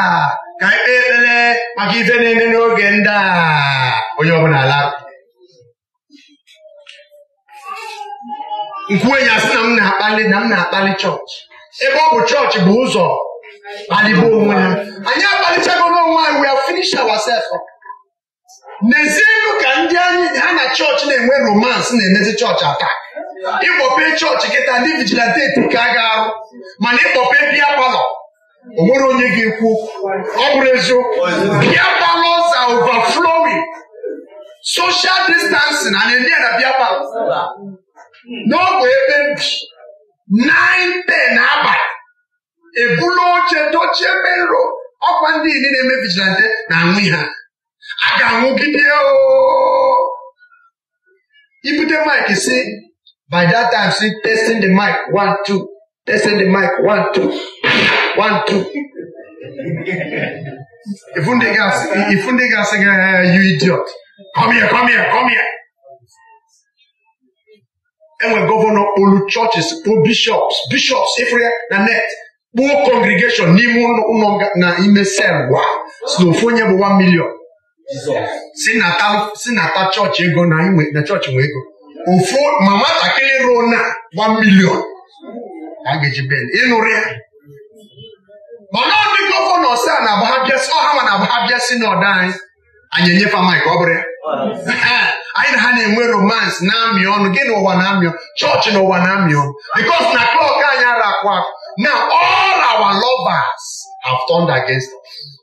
ka ikpe ekpere maka ife na-eme n'oge ndị a onye ọbụla ala nkwuenyi asị na m na-akpali na m na-akpali chọọchị ebe ọ bụ chọọchị bụ ụzọ kpalibe onwe ha anyị akpalichago n'onwe anyị wee have n'ezienụ ka ndị anyị ha na chọọchị na-enwe romansị na-emezi chọọchị atak ịkpọpe chọọchị kịta ndị vigilanteti ka a ga-arụ mana ịkpọpe bịa palọ o nwere onye ga-ekwu ọ bụrụ eziokwu bịa palọ za overflowing social distancing na eme na bịa palọ n'ogbe ebe mbi te na abalị ebula oche dochie mero ọkwa ndị niile na-eme vigilante na-aṅụ ha Àdàrùn gidi ooo. Ibùdó mic sí by that time sí testing the mic one two testing the mic one two one two. Ifunde Ifundega Ifundega sing uh, you idiot come here come here come here. Enwe gọvanọ olu churches po bishops bishops ifre na net kpuo congregation n'ime ụlọ na ime sel wa. Slofonia bụ one million. si nata si n'ata chọọchị ego na chọọchị nwee ego ofu ma nwatakịrị ruo na million milion a ga-eji ben ịnụrụ ya mana ọdị gọvanọ ọsa na ọha ma na abaghabịa si n'ọda anyị anyị enyefe amaghị ọ bụrụ ya anyị na ha na-enwe romans na-amị ọnụ gị na ụwa na-amị ọnụ chọọchị na ụwa na-amị ọnụ bikos na klọk anyị ara akwa na all our lovers have turned against us.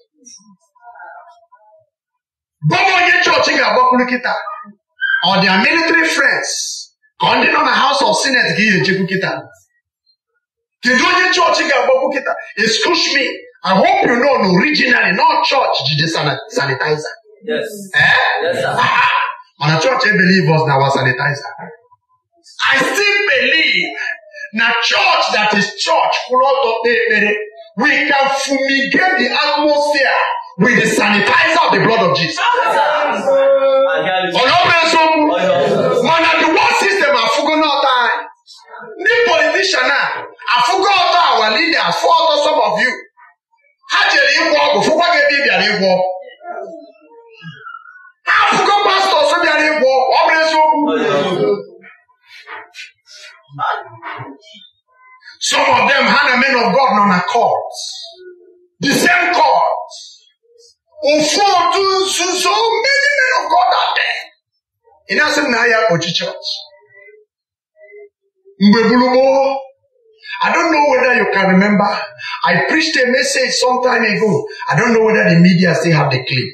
bụrụ onye chọọchị ga-agbakwuru kịta ọ dị military friends ka nọ na House of Senate ka ị ga-echekwu kịta kedu onye chọọchị ga-agbakwu kịta excuse me I hope you know na originally no church jide sanitizer eh? mana chọọchị e believe us na our sanitizer I still believe na church that is church kwụrụ ọtọ kpee ekpere we can fumigate the atmosphere with the sanitizer of the blood of Jesus. Ọlọ́pẹ̀sùn mọ̀nà the world system àfúgúnná ọ̀tá ẹ̀. Ní politician náà, àfúgọ́ ọ̀tá our leaders fún ọ̀tọ̀ some of you. Ha jere ịgwọ ọgwụ fụkwa gị ebe ị bịara ịgwọ. Ha afụgo pastọs bịara ịgwọ ọ Some of them ha na men of God nọ na court. The same court ụfọdụ nzuzo many men of God are there ị na-asị m na mgbe gburu gboo I don't know whether you can remember. I preached a message some time ago. I don't know whether the media still have the clip.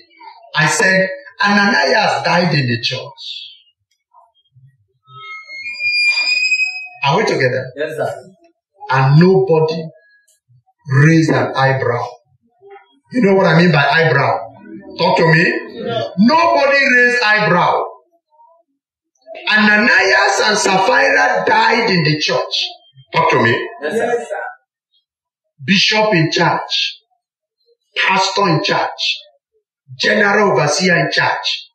I said, Ananias died in the church. Are we together? Yes, sir. And nobody raised an eyebrow you know what I mean by eyebrow? Talk to me. Nobody raised eyebrow. Ananias and Sapphira died in the church. Talk to me. Yes, sir. Bishop in church. pastor in church. general overseer in church.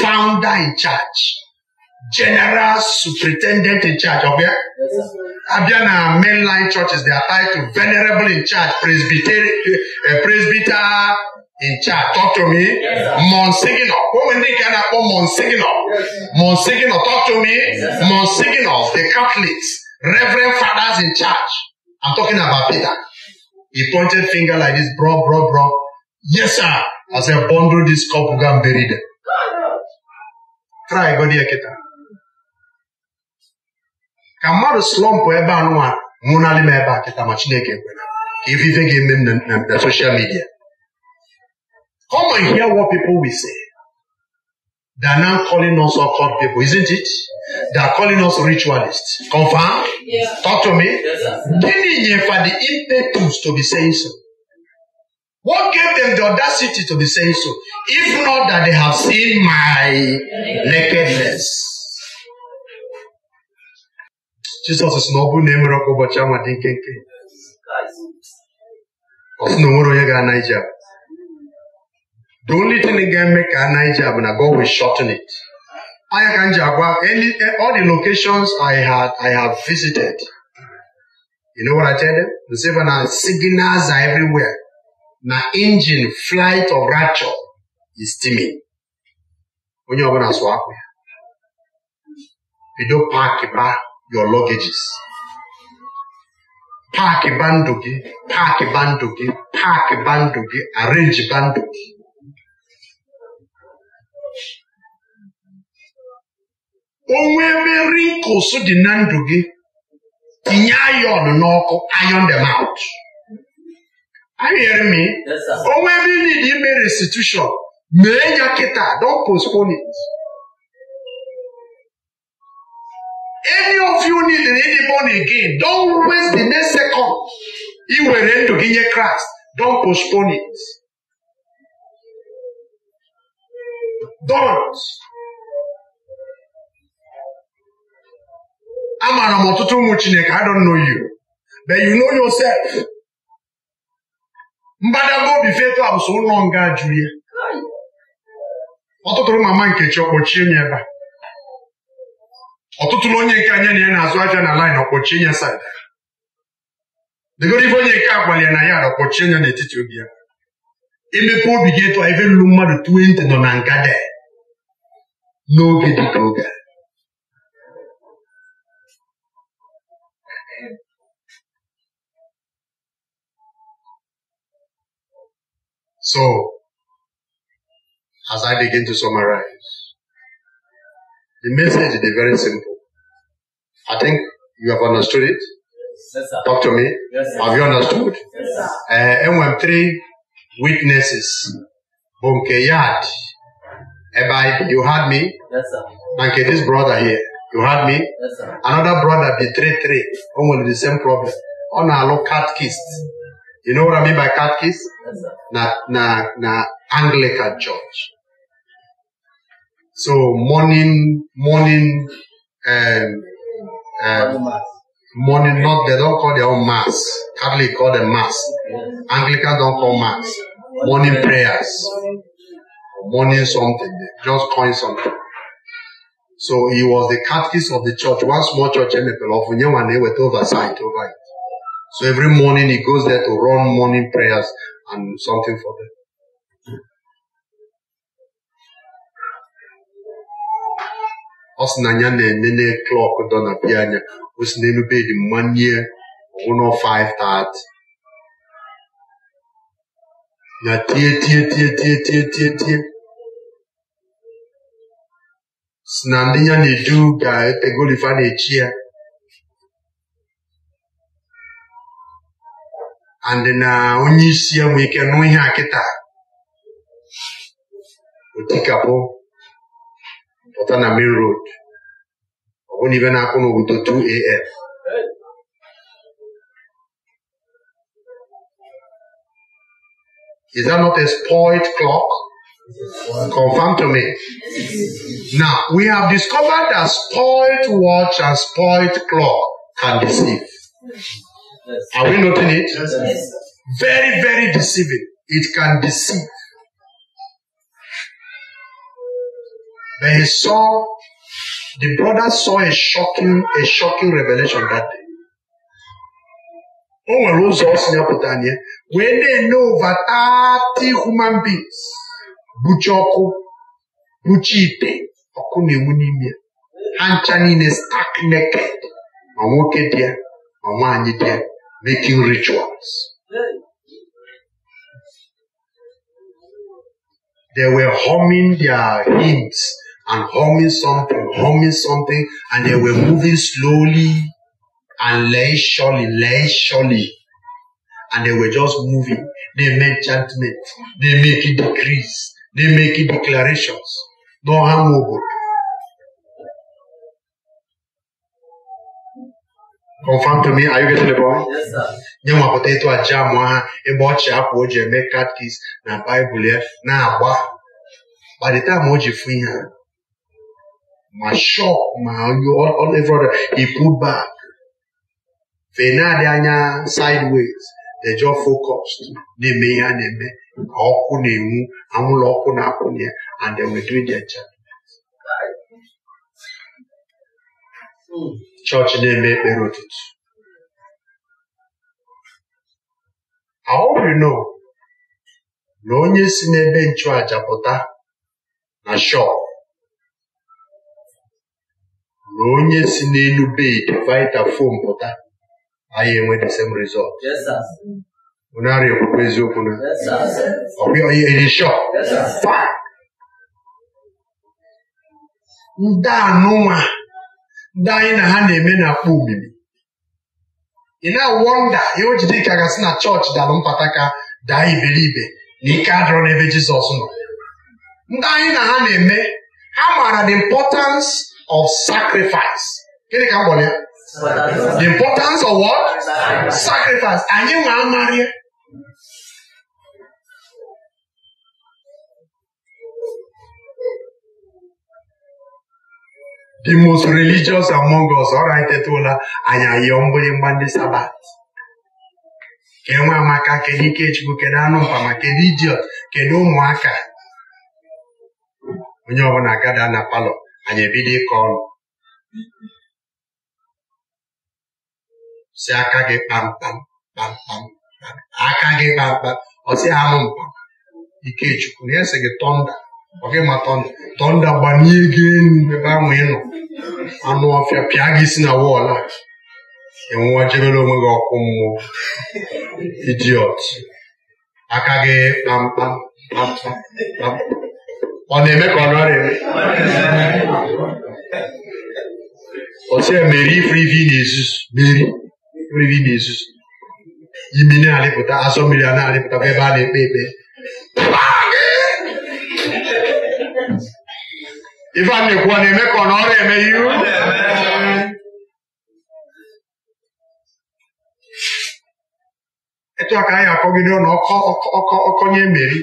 founder in church. general superintendent in church. Okay? Yes, sir. Abia na mainline churches, they are tied to venerable in charge, presbyter, uh, presbyter in charge. Talk to me. Yes, Monsignor. Who many can I call Monsignor? Yes, Monsignor, talk to me. Yes, Monsignor, the Catholics, Reverend Fathers in charge. I'm talking about Peter. He pointed finger like this, bro, bro, bro. Yes, sir. I said, bundle this cup, go and bury them. Try, go there, Kita. ka mmadụ slọmpụ ebe anụnwa nwụnarị m ebe a kịta ma Chineke kwere ka ivive ga-eme na social media come and hear what people will say they are now calling us occult people isn't it they are calling us ritualists confirm yes. talk to me gịnị nyefa the impetus to be saying so What gave them the audacity to be saying so? If not that they have seen my nakedness. Jizọs sị na ọ bụrụ na e ọkụ ụbọchị anwa dị nkenke ọ sị na onwere onye ga-ana ije abụ the only thing ga-eme ka ana ije abụ na God will shorten it anya ka m ji agwa all the locations I had I have visited you know what I tell them? Nsiva na signals are everywhere na engine flight of rapture is steaming onye ọbụla sụ akwa ya bido paaki baa your luggages paakị bandụ gị paakị bandụ gị paakị bandụ gị arenji bandụ gị onwe ebe rinkos dị na ndụ gị tinye ayọn n'ọkụ iron dem out anyere m onwe ebe ị dị ime restitution mee ya kịta don postpone it. any of you need to be don again don't waste the next second iwere ndụ gị nye kraịst don postpone it don't amaara m ọtụtụ ụmụ chineke i don't know you but you know yourself mbadamba obi fetu abụsụ ụlọ nga jụrụ ya ọtụtụrụ mama nkechi ọkpọchie m ebe a Ọtụtụ na onye nke anya na ya na-azụ aja na laịn ọkpọchi ya saịda degoro ife onye nke agbalị na ya ọkpọchie ya n'etiti obi ya imepe obi gị etu ife lụrụ mmadụ 20 nọ na ngada n'oge dị ka oge so as I begin to summarize The message is very simple. I think you have understood it. Yes, Talk to me. Yes, have you understood? Yes, uh, and three witnesses, Bunkeyad, Ebai, you heard me? Yes, sir. Banke, this brother here, you heard me? Yes, sir. Another brother betrayed three, almost the same problem. On a low cat kissed. You know what I mean by cat kiss? Yes, sir. Na, na, na Anglican church. So morning, morning, and um, um, morning. Not they don't call their own mass. Catholic call them mass. Anglican don't call mass. Morning prayers. Morning something. They just coin something. So he was the catechist of the church. One small church in the Pelofunyewane with oversight over So every morning he goes there to run morning prayers and something for them. ọ sị na ya na-enene klọk dọ na bịa anya o si n'elu bedi mmanye ọgwụnọ 5:30 na tie tie tie tie tie tie tie si na ndị ya na-eju ga-etegolifa na-echi ya andị na onye isi ya nwee ike nụ ihe kịta otikapụ On a main road I bụrụ na ibe na 2am Is that not a spoiled clock? Confirm to me. Now, we have discovered that spoiled watch and spoiled clock can deceive. Are we noting it? Very, very deceiving. It can deceive. But he saw, the brother saw a shocking, a shocking revelation that day. O nwere ụzọ ọ si apụta anya wee na-enye over 30 human beings buchi ọkụ buchi ite ọkụ na-enwu n'ime ya naked ma nwoke making rituals they were humming their hymns and humming something, humming something, and they were moving slowly and leisurely, leisurely. And they were just moving. They make judgment. They make it decrees. They make it declarations. No harm, no good. Confirm to me, are you getting the point? Yes, sir. nye nwa potato aja amụ ha ebe ọ chị apụ o ji eme katkis na Bible ya na-agba by the time o ji fụ ma shop ma all every he pulled back fenadị anya sideways they just focused na-eme ihe a na-eme ka ọkụ na-enwu anwụrụ ọkụ na-akwụnye and they were doing their job chọọchị na-eme ekpere ụtụtụ aorino na onye si n'ebe nchụàjà pụta na shop na onye si n'elu bedi fom pụta anyị enwe the same result unarị ekwukwe eziokwu na ndị anụnwa ndị anyị na ha na-eme na-akpọ omimi ị na-awọnda ihe o jide ka gasị na chọọchị dalụ mpata ka daa iberibe na ike adịrọ n'ebe Jizọs nọ ndị anyị na ha na-eme ha maara the importance of sacrifice gịnị ka m ya the importance of what sacrifice anyị nwe amarị the most religious among us ọra anyị tetụla anyị ayọ mgbịrịgba ndị sabat ka enwe amaka kedu ikechukwu kedu anụ mpama kedu idiot kedu ụmụaka onye ọbụla gada na palọ anyị ebido ịkọ ọnụ si aka gị kpamkpam kpamkpam aka gị kpamkpam ọsi anụ mkpa Ikechukwu na sị gị tọnda ọ gị ma tọnda tọnda gbanye gị elu ebe ahụ nọ anụ ọfịa pịa gị si na wọlụ a enwụọ jebere onwe gị ọkụ mmụọ idiot aka gị kpamkpam kpamkpam kpamkpam ọ na-eme ka ọ nọrọ eme ọsịa mere ifuru ife ị na-ezuzu mmeri ifuru ife ị na-ezuzu imi na-alịpụta azọ mmiri a na-alịpụta ebe a na-ekpe ekpe ife a na-ekwu ọ na-eme ka ọ nọrọ eme ihu etu a ka anyị akọgide ọnụ ọkọnye emeri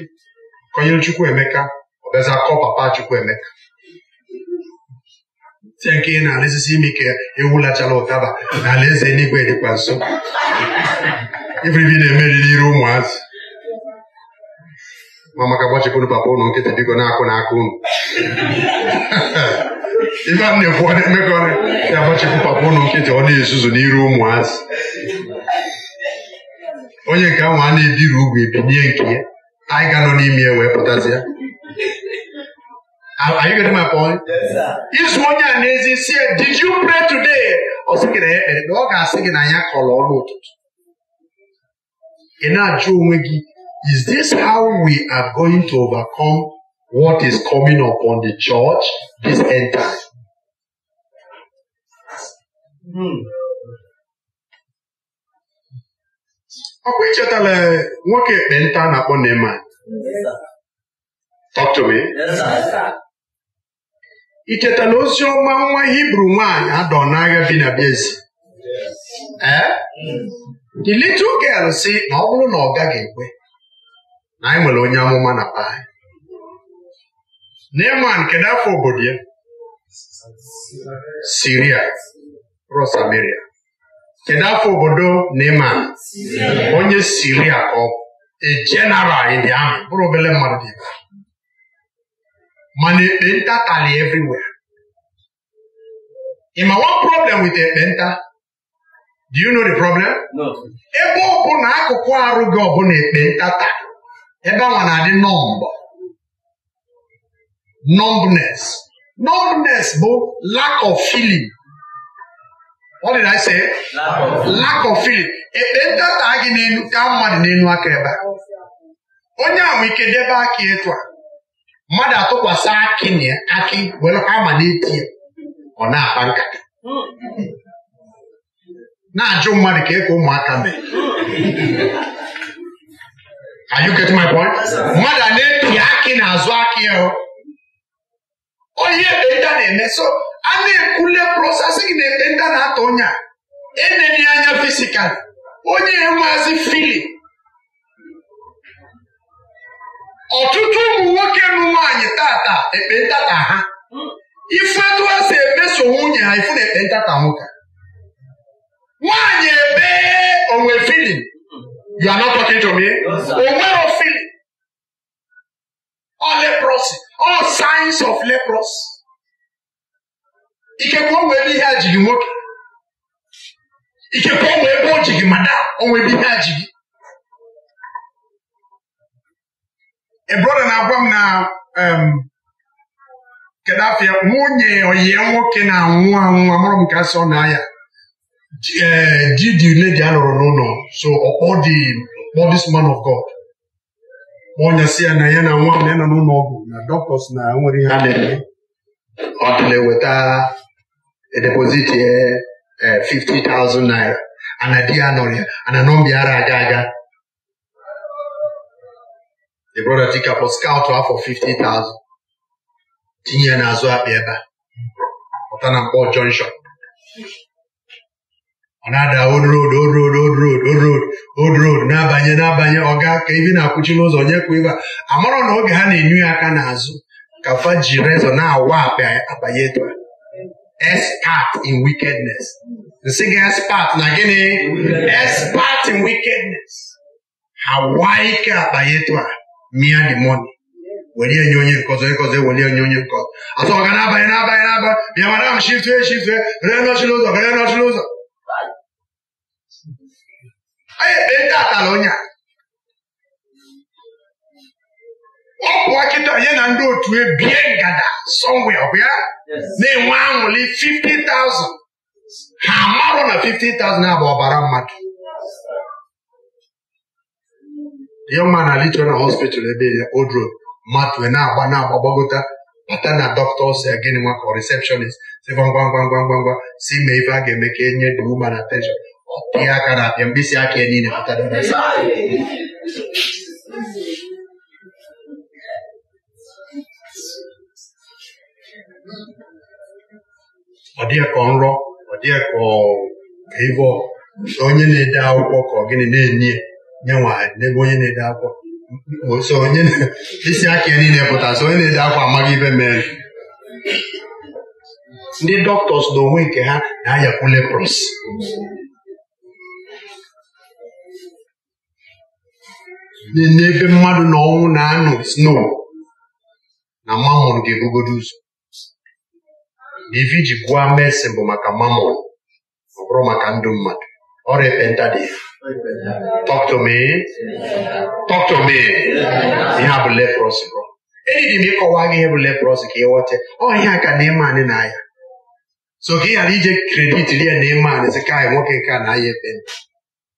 kọnyere Chukwu Emeka ọ gaghịzi akọ papa Chukwuemeka tie nke ị na-alesisi ime ike ewulachala ụtaba na ala e alaeze eluigwe dịkwa nso iberibi na-emeriri ire ụmụazị ma maka gbachipụrụ papa ụnụ nkịtị biko na-akụ na aka ụnụ ife a na-ekwu ọ na-emekọ na-agbachipụ papa ụnụ nkịtị ọ na-ezuzu n'iru ụmụazị onye nke ahụ a na-ebiri ugwu ebinye nke ya anyị ga-anọ n'ime ya wee pụtazi ya Are you getting my point? Yes, sir. Izu onye a n'ezi si did you pray today? Ọ sị gị na ya kpere, ọ ga-asị gị na ya kọrọ ọnụ ụtụtụ. Ị na-ajụ onwe gị, is this how we are going to overcome what is coming upon the church this end time? Hmm. Ọkwa ichetala nwoke ekpenta na-akpọ Neman. Talk to me. Yes, sir. icheta na ozi ọma nwa hibru nwaanyị adọ n'agha bi na Bịazi ee the little girl si na ọ bụrụ na ọ gaghị ekwe na anyị nwere onye amụma na be anyị Neman nke n'afọ obodo ya Siria Rosamaria kedu afọ obodo Neman onye Siria ka ọ bụ a ahụ bụrụ obere mmadụ dị mana ekpenta tali everywhere ịma one problem with ekpenta do you know the problem ebe ọ bụ na akụkụ arụ gị ọbụla ekpenta tali ebe a na-adị nọmbọ numbness numbness bụ lack of feeling What did I say? Lack of feeling. ekpenta taa gị n'elu ka mmadụ n'elu aka ebe a onye ahụ ike debe aka etu a mmadụ atụkwasị akị na akị were ama na-eti ya ọ na-akpa nkata na-ajụ mmadụ ka ịka e ụmụaka mee Are you getting my point? mmadụ a na-epi akị n'azụ akị ya onye ekpenta na-eme so a na-ekwule prosesị gị na ekpenta na-atọ e onye a enene anya fisikal onye enweghịzi fili ọtụtụ ụmụ nwoke na nwaanyị tata ekpentata ha ifetu ha si emeso nwunye ha ifu na ekpentata nwoke nwaanyị ebe onwe filin you are not talking to me o filin all leprosy all signs of leprosy ikekwe o ebe ihe a nwoke ikekwe o nwere ebe o jiri mada, o nwere ihe a brọda na-agwa m na kedu um, afịa nwunye oyi nwoke na-anwụ anwụ amụrụ m ka sọ na ya ji dị ledi a n'ụlọ so ọkpọ this man of God onye si ya na ya na nwa m na ya nọ n'ụlọ ọgwụ na dọktọs na nwere ihe a na-eme ọ dịla eweta edepoziti eh, 50,000 naira ana di ya nọrọ ya ana nọmba ara aga aga the brother tikapọ skaụtụ afọ 50,000 tinye ya n'azụ akpị ebe a pụta na mkpọ jọnshọn ọ na-ada old road old road old road old road old road na-abanye na-abanye ọga ka ebi na-akwụchi n'ụzọ onye kwa ibe a marọ na oge ha na-enyu ya aka n'azụ ka fa ji rezọ na-awa akpị abanye etu a expert in wickedness nsị gị expert na gịnị expert in wickedness ha waa ike akpa ya etu a mia the money were onye nkọzọ onye nke ọzọ ewere onye nke atọ ọga n'abalị n'abalị n'abalị bịa mara ahụ shifte shifte ree n'ụzọ ree nọchị n'ụzọ anyị ekpe ndị atala onye a ọ kịta nye na ndị otu ebie ngada sọmwe na-enwe aṅụrị 50,000 ha marụ na 50,000 abụ ọbara mmadụ ya nwa na lichọral hospital ebe ya odro mmadụ na-agba na-agba gbagota bata na dọkịta ya gịnị nwa ka receptionist si ngwa ngwa ngwa ngwa ngwa si mee ife a ga-eme ka enye dị uma na tension ihe aka na abịa mkpịsị aka ya niile ọ dịghị ka nrọ ọ dịghị ka ive onye na-ede akwụkwọ ka ọ gịnị na-enye nye nwaanyị n'ebe onye na-ede akwa so onye isi aka ya niile pụta so onye na-ede akwa amaghị ibe mere ndị dọktọs onwe nke ha na-ayapụ lepros n'ebe mmadụ na ọnwụ na anụ snow na mamon ga-ebugodo ụzọ na ife ji gwa mesin bụ maka mamon ọ bụrụ maka ndụ mmadụ or repented Talk to me. Talk to me. Ihe a bụ leprosy bro. Eji m ịkọwa gị ihe bụ leprosy ka ị ghọta ọ ihe ka na-eme anyị na ya so ka ị ghara ije kredit ya na-eme anyị sị ka anyị nwoke nke a na ya ekpenta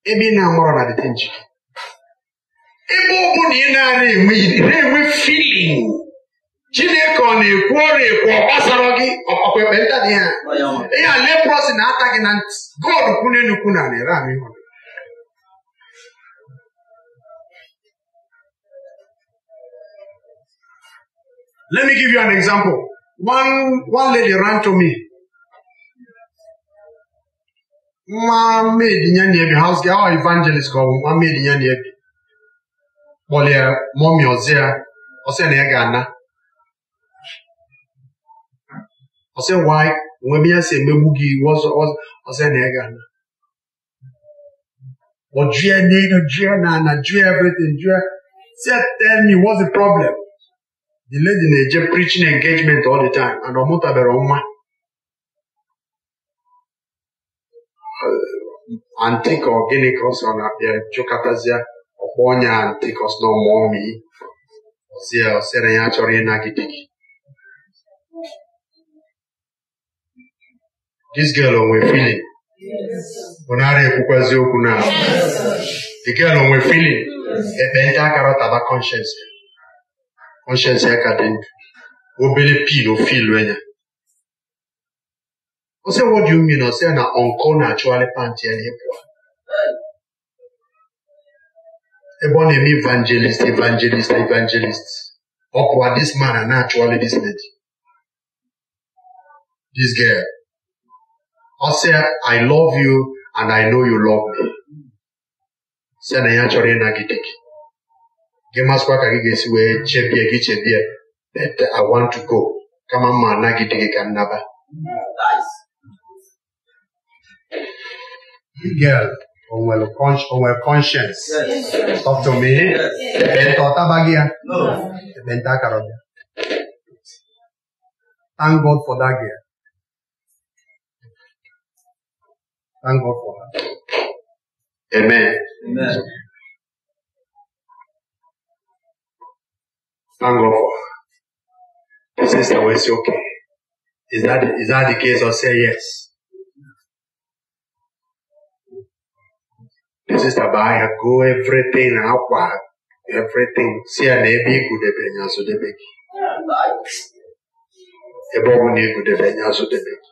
ebe ị na-amụrụ na dịte njikere ebe ọ bụ na ị na-enwe filin chineke ọ na-ekwu ọrụ ekwu ọ gbasara gị ọkwa ekpe dị ya ihe a si na-ata gị na ntị god kwuna enukwu na nara ahụ Let me give you an example. One one lady ran to me. Nwa maid ya na-ebi house girl or evangelist ka ọ bụ nwa maid ya na-ebi kpọlie mọmi ọzọ ya ọsị na ya ga-ana ọsị nwaanyị nwebe ya si emegbu gị ọsị na ịga na but jụọ n'ihu na na jụọ everything jụọ say tell me what's the problem the lady na-eje preaching engagement all the time and ọ mụtabere nwa uh, antikọ gịnị ka ọ sọ na-abịa jụkọtazie ọkpọ onye antikọs na ọmụọmi ọsị ya ọsịra ya chọrọ ịnagide gị this girl onwe feeling bụ nara ekwukwazi okwu na the girl onwe feeling ekpenta akara taba conscience conscience ya ka dị ndụ obere pin ofilu ya Ose what do you mean na onko na-achụgharị pantị ya na-epụa ebe ọ na-eme evangelist evangelist evangelist ọ pụwa this man na-achụgharị this lady this girl i say, I love you and I know you love me. Sị na ya chori na gitiki. Gị masịkwa ka gị ga-esi gị chebie that I want to go kama mma anagide gị ka Nice. Girl, on nwere conscience. Yes. Talk to me. Ekpenta ọ tabaghị No. Ekpenta akara ọbịa. Thank God for that girl. Thank God for that. Amen. Amen. Thank God for her. Sister, was okay. Is that is that the case? Or say yes. The sister by her go everything outward, everything. See an ebi good ebenya so debeki. Ebo ne good ebenya so debeki.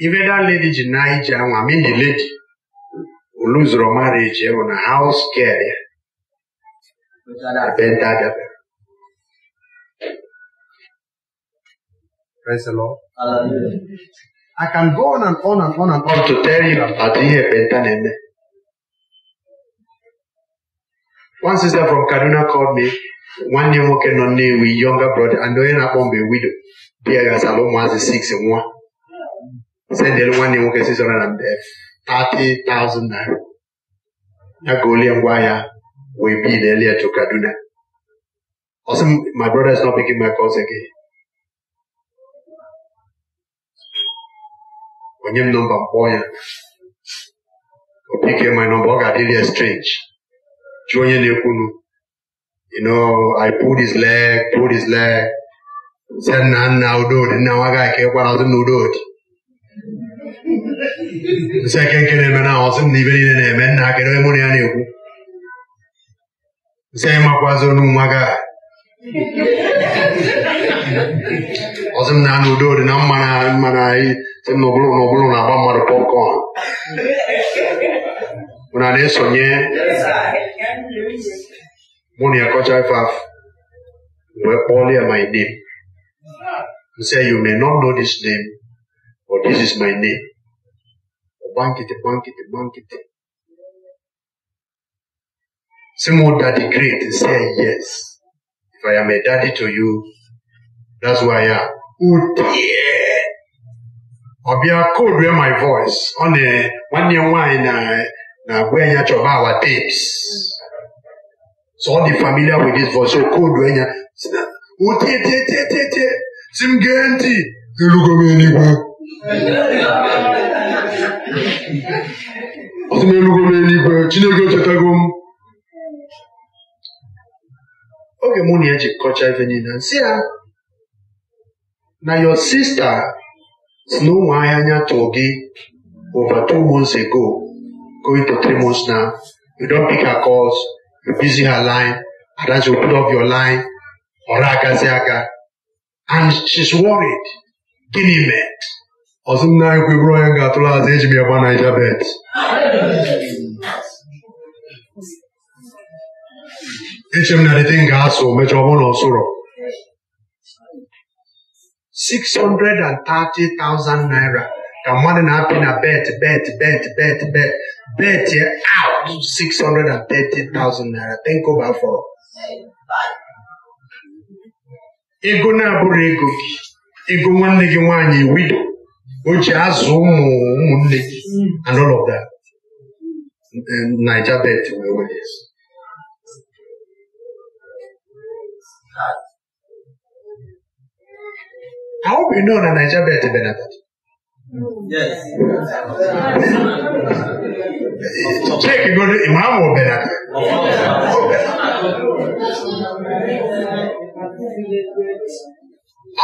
ife that lady ji na ije anwa mini lady oluzoro marriage ịhụ na haus girl ya ihe penta na-eme. One sister from Kaduna called me nwoke nọ Nnewi younger brother and onye akpọ mgbe widow di ya ụmụazị nwa sendịrị nwanne m nwoke 630,000 naira ya ga olie ngwa ahịa wee bil elie to Kaduna ọsị my brother is not picking my calls again onye m nọmba mkpọọ ya o pike my nọmba ọ ga-adịrị ya strange jụọ onye na-ekwunu you know, I pulled his leg, pulled his leg. Said, "Nah, now do it. Now I got to get one out of the Sekä kenen mä naosin, niin veli ne mennään, kerran mun jääni joku. Se ei makua sun numakaa. Osim na nu do na mana mana i se no bulu no bulu na bamba do popcorn. Una ne sonye. Moni akocha faf. We call here my name. He said, you may not know this name, but this is my name. bankete, bankete, bankete. old daddy great is saying yes. If I am a daddy to you, that's why I am. Oh dear. I'll be a cold with my voice on a one year wine now where you have our tapes. So all the familiar with this voice, so cold when you oh dear, dear, dear, dear, dear. Sim Genti, you look at me anywhere. ọtụ m elugo m eluigwe Chineke echetago m oge mụ na ya jikọcha ife niile nsị ya na your sister si na ụmụ ahịa anya tụrụ gị over two months ago going to three months now you don pick her calls you busy her line and you put up your line ọra agazi aga and she's worried gịnị mere ọzụ nna anyị kwe onye ga-atụrụ azụ eji m ya gba naija bet eche m na dịte m ga-asụ mechaa ọbụ na ọsụrọ 630,000 naira ka mmadụ na-apị na bet bet bet bet bet bet ya out 630,000 naira tenkoba fọrọ ego na-abụrụ ego gị ego nwanne gị nwaanyị widow which has Umu and all of that. Niger Belt, wherever it is. I hope you know that Niger Belt benefit. Yes. Take go to Imam or Benata.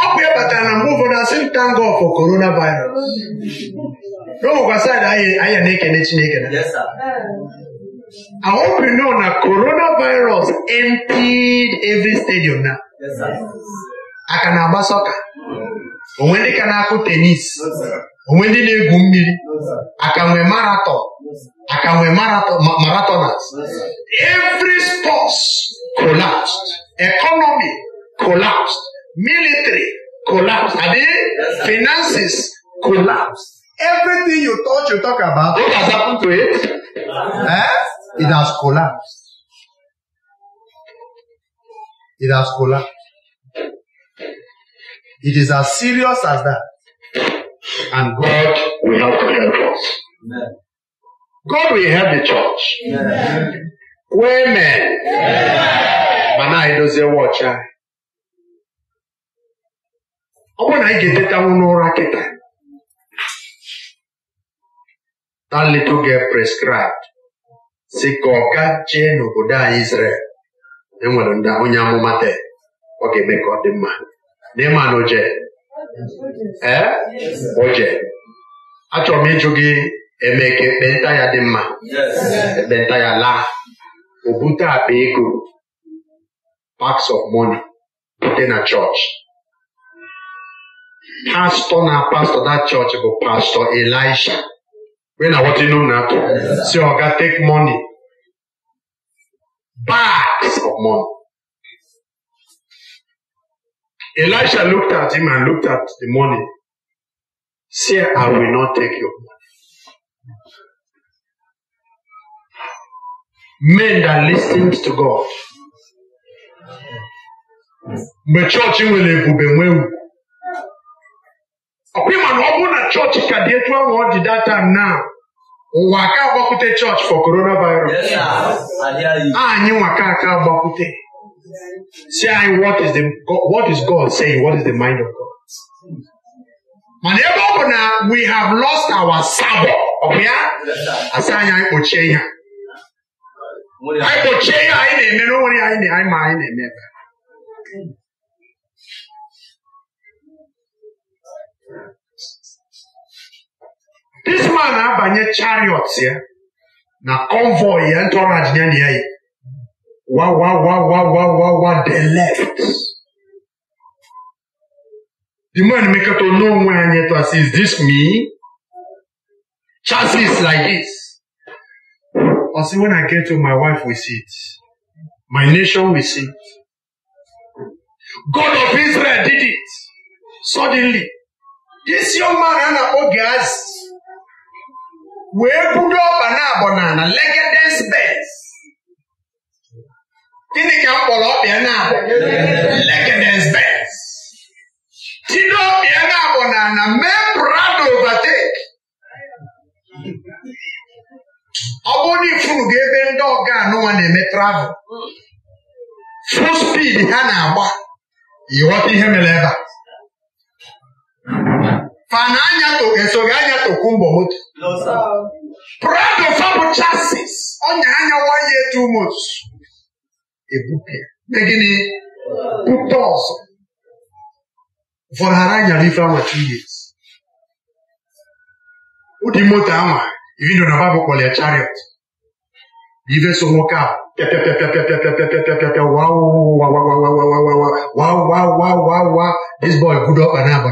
ọ bụ na mgbe ụfọdụ asị m thank God for corona virus n'ụmụkwa saịdị anya na-ekene Chineke na I hope you know na coronavirus emptied every stadium na aka na-agba sọka onwe ndị ka na-akụ tenis onwe ndị na-egwu mmiri aka nwee marathon aka nwee marathoners every sports collapsed economy collapsed Military collapse. I mean, finances collapse. Everything you thought you talk about, what has happened to it? Eh? It has collapsed. It has collapsed. It is as serious as that. And God will help to help us. Amen. God will help the church. Amen. Women. Amen. Mana idozie watch. Eh? ọ bụrụ na anyị ga-etetanwu n'ụra kịta ta leta oge prescribed si ka ọ ga jee n'obodo anyị Israel enwere ndị onye amụma te ọ ga-eme ka ọ dị mma n'ịma na oje ee eh? oje achọrọ m ịjụ gị eme ka ekpenta ya dị mma ekpenta ya laa o bute akpa ego paks of money bute na chọọchị pastor na pastor that church bụ pastor elisha wee na wọta know na-atụ si ọga take money bags of money elisha looked at him and looked at the money say i will not take your money men that listens to god mgbe chọọchị nwere ebube nwee ugwu ọkwa ma na ọ bụrụ na chọọchị ka dị etu ahụ ọ dị data na ụwa aka agbakwute chọọchị for coronavirus anyị nwaka aka agbakwute si anyị what is God saying what is the mind of God mana ebe ọ bụ na we have lost our sabbath ọ asị anyị anyị kpochie ihe anyị kpochie ihe anyị na-eme this man na-abanye chariots ya na convoy ya entourage ya na ya yi wa wa wa wa wa wa wa the left the man mekọta n'onwe anyị to say is this me chances like this I say when I get to my wife we see it my nation we see it God of Israel did it suddenly this young man ana oge azi wee budo ọkpa na abọnala legedes beds gịnị ka m kpọrọ ọkpịa na abọ legedes beds tido ọkpịa na abọnala mee brado overtake ọ bụrụ na ifuru gị ebe ndị ọga n'ụwa na-eme travel full speed ha na-agba ịghọta ihe mere ebe a fana anya so gị anya tokwu mbọ moto prọdụfa bụ chasis ọnya anyawa ya etu mot megịnị pụta ọzọ vọlhara nyara ife awa tuyet ụdị moto anwa ibido na babụ kpọrọ ya chariot ife so nwoke ahụ pịapịapịapịapịapịapịapịapịapịa this boy gudo ọkpa na-agba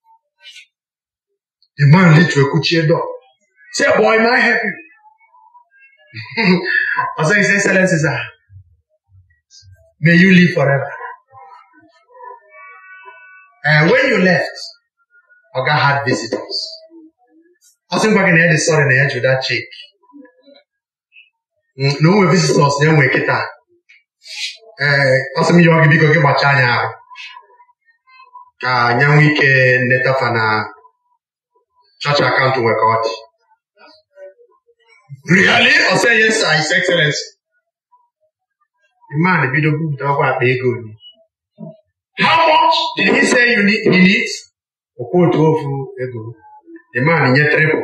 The man literally kuchie door. Say, boy, may I help you? I say, His Excellency, sir, may you live forever. And when you left, Oga had visitors. I think back in the end, they saw in the edge with that chick. Mm, na o nwere visitors na-enwe kịta ee eh, ọ sị m yọọ gị biko gị gbachaa anya ahụ ka anya nwee ike nnetafa na Church account nwee ka really ọ sị yes sir his excellency man bido bupụta ọkwa akpa ego how much did he say you need, he needs okwu otu ofu ego the man nye triple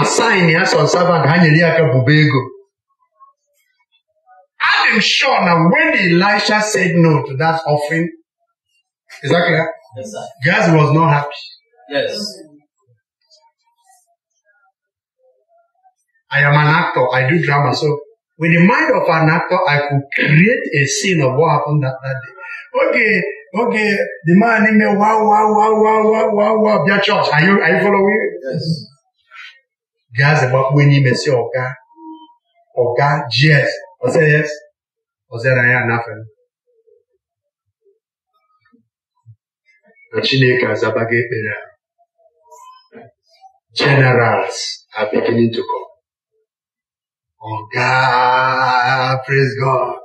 asaịn ya son servant ha nyere ya aka bube ego I'm sure now when Elisha said no to that offering, is that clear? Yes, sir. Gaz was not happy. Yes. I am an actor. I do drama. So with the mind of an actor, I could create a scene of what happened that, that day. Okay, okay, the man in me wow, wow, wow, wow, wow, wow, wow, their church. Are you, are you following? Yes. Gas about when you may say, okay, okay, yes. I say yes. I said, I am nothing. na Chineke azaba gị ekpere ahụ generals are beginning to come. Ọga praise God.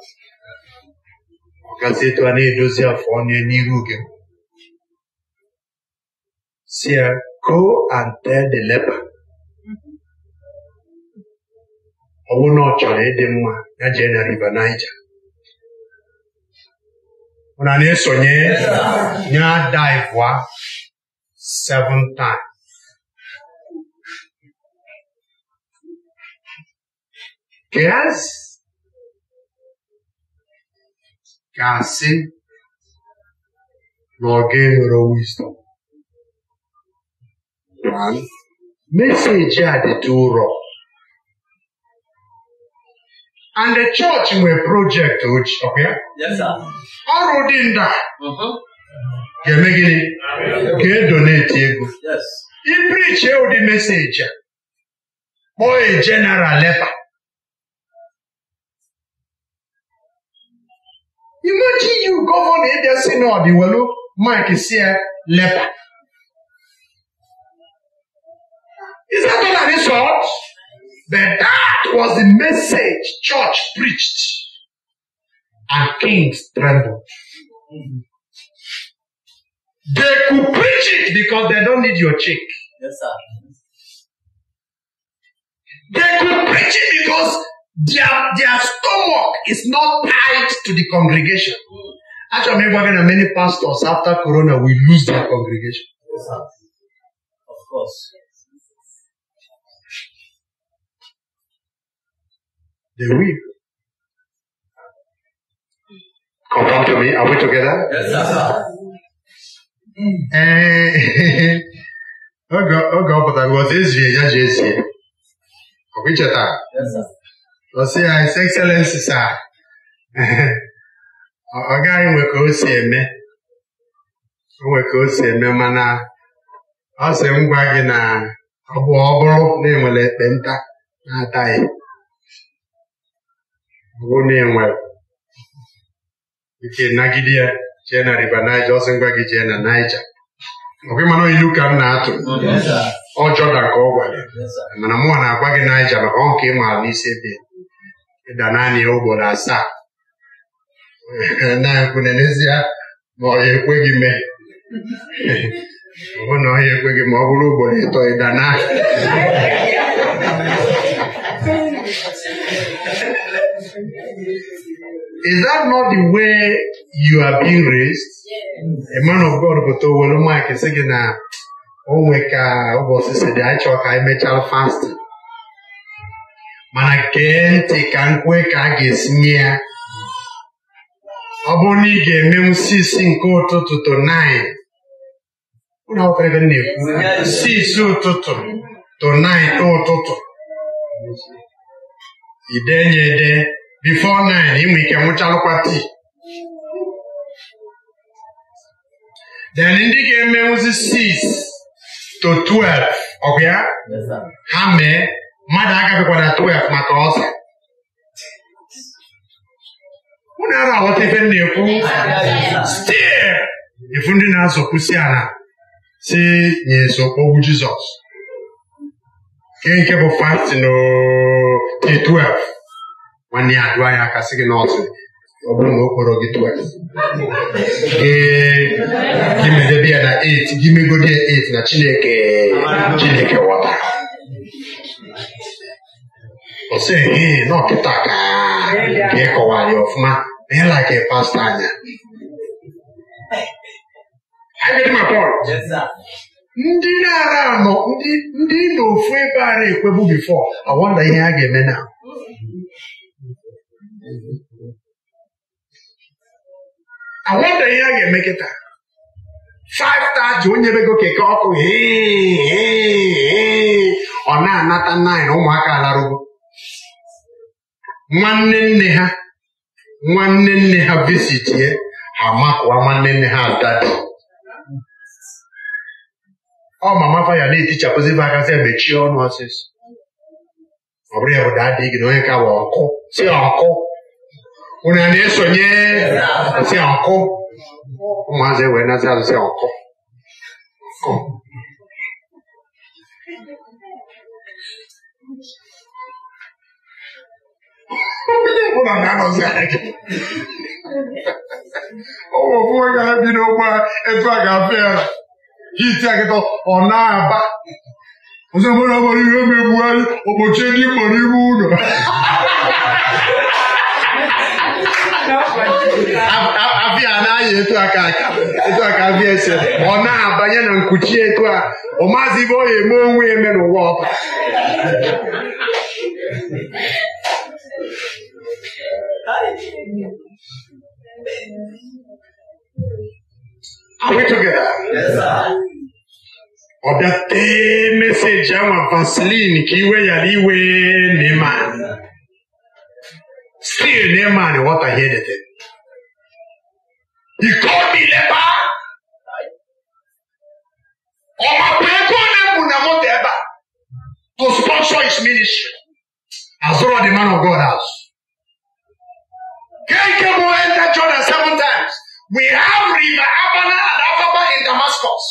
Ọgazi etu a na-edozi afọ onye n'iru gị. Si ya, go and tell the leper. Ọnwụ na ọ chọrọ ịdị mma ya jee na River Niger. Onani sonye nya die voa seven times. Yes. Kasi Lord gave her wisdom. One message had the two wrong. And the church nwere project ọkụ ya. Ọrụ dị nda uh-huh. ga-eme gịnị ga-edoneti ego. Iprichi e ụdị meseji a kpọọ e general lepa. Imagine you gọvanọ ịbịa si n'ọdị welu Mike si ya e, lepa. Is that all that is But that was the message church preached. And kings trembled. They could preach it because they don't need your check. Yes, sir. They could preach it because their, their stomach is not tied to the congregation. Actually, we're am even many pastors after Corona will lose their congregation. Yes, sir. Of course. They will. Confirm to me. Are we together? Yes, sir. oge ọ pụtara ọtụ ezie ya ji ezie ọ bụ icheta ọsị ya his excellency sir ọ gaghị nwe ka o si eme nwe ka o si eme mana ọ sị m gwa gị na ọ bụ ọ bụrụ na enwere eh. ekpenta na-ataghị ngomengwe ikenagidia chena ribanaja osengwagi chena naija ọsị ngwa gị na naija okwimana ilu ka m na-atụ ọjọọ ọjọda ka ọ gwara mana mụwa na-agwa gị naija maka ọ nke ịma n'isi ebe ịda e naanị ya ụgboro asaa na ekwu na n'ezie ma ọ ekwe gị mee ọ na ọhịa ekwe gị ma ọ bụrụ ugboro ịtọ e ịda naanị Is that not the way you are being raised? A man of God sị gị na onwe ka ụbọchị si dị ka mana gee ntị ka nkwe ka a ga-esi nye ya ọ bụrụ na ị ga-emenwu sisi nke ụtụtụ to ụlọ akwụkwọ na-ekwu sisi to ide nye ede bifo nine inwe ike nwụchalụkwa tii then ndị ga-emenwuzi sis to 12 ọgụ ya ha mee mmadụ agabịkwana 12 maka ọsọ. ọsa unu ara aghọta ife na-ekwu stil ifu ndị na-azọkwusi ala si nye nso okwu Jizọs nke nke bụ fastin k12 nwanne ya dụọ ya aka sị gị n'ọtụ ọ bụrụ na o kpọrọ gị 12 gị medebe ya na 8 gị megodi 8 na Chineke Chineke ghọtara ọ sị ee na ọkịta ka ịkọwa anyị ọfụma na ịla pasta anya ndị na-ara anọ ndị na ofu ebe ara ekwebu bifọ awọnda ihe a ga-eme na awọnda ihe a ga-eme kịta 5:30 onye bego keke ọkụ ọ na-anata 9 ụmụaka alarugo nwanne nne ha nwanne nne ha visitie ha makụwa nwanne nne ha adadi ọ ma mafa ya na-etichapụzi m aka sị e mechie ọnụ ọsịsọ ọ bụrụ ya bụ dadị gị na onye ka bụ ọkụ si ọkụ unu ya na-esonye si ọkụ ụmụazị e wee nazi azụ si ọkụ ụmụ ọbụwa ga-ebi n'ụgbọ etu a ga-afụ ya iti akịta ọ na-aba ọzọ mara mara ihe megbughari ụbọchị ndị kpọrọ ime ụlọ abịa anaghị etu aka aka etu aka abịa ese ọ na-abanye na nkuchi etu a ọ maazị ibe ọ eme onwe eme n'ụwa ọba We together. Yes, sir. ọ̀dà tẹ́ mẹ́sẹ̀gì àwọn vaseline kì í wẹ̀yàrí ìwé neman still neman wọ́tà yẹ́ dẹ̀tẹ̀. ìkọ́ni lẹ́bà ọmọ pẹ̀lú ẹ̀kọ́ náà mú ẹ̀bà to sponsor his ministry as well the man of God house. kéèké mo enter Jordan seven times. We have river Abana and Afaba in Damascus.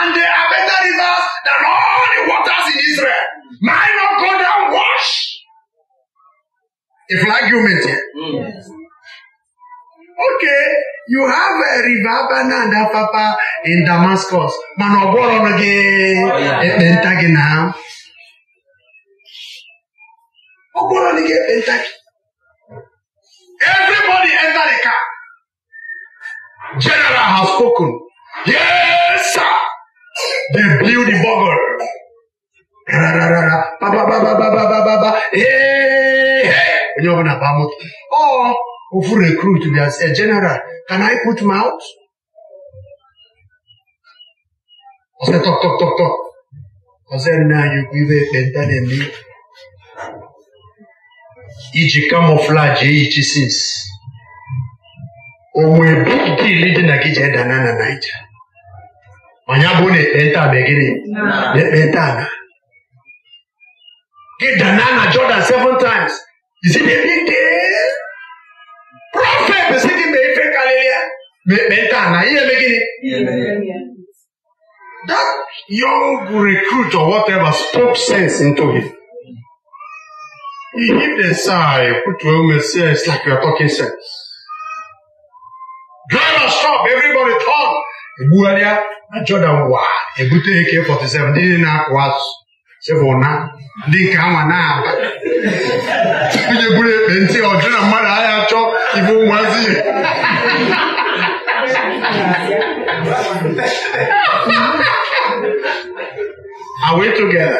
And there are better rivers than all the waters in Israel. Mine not go down wash. If like you meant it. Mm. Okay, you have a river Abana and Afaba in Damascus. Manoboron again. Oh, yeah. Eh, Everybody enter the car. General has spoken. Yes, sir. They blew the bugle. onye ọbụla ọ ofu recruit bịa eh, general can I put mouth? ọsị tọk tọk tọk tọk nne anyị ukwu ibe na-eme iji kamọflaji eyi since onwe big deal dị na gị ji edana na naija manya bụ na ekpenta megịrị na ekpenta ala gị dana na jordan seven times isi na big deal prọfet si gị ma ife karịrị ya ma ekpenta ala ihe eme gịnị that young recruit or whatever spoke sense into him he hit the side put your own sense like you are talking sense dryness stop everybody turn egbugharịa na Jordan wa ebute Eke 47 ndị na-akụ azụ sebụna ndị nke anwa na-aba onye buru ekpe ntị na mmadụ agha chọọ ibu Are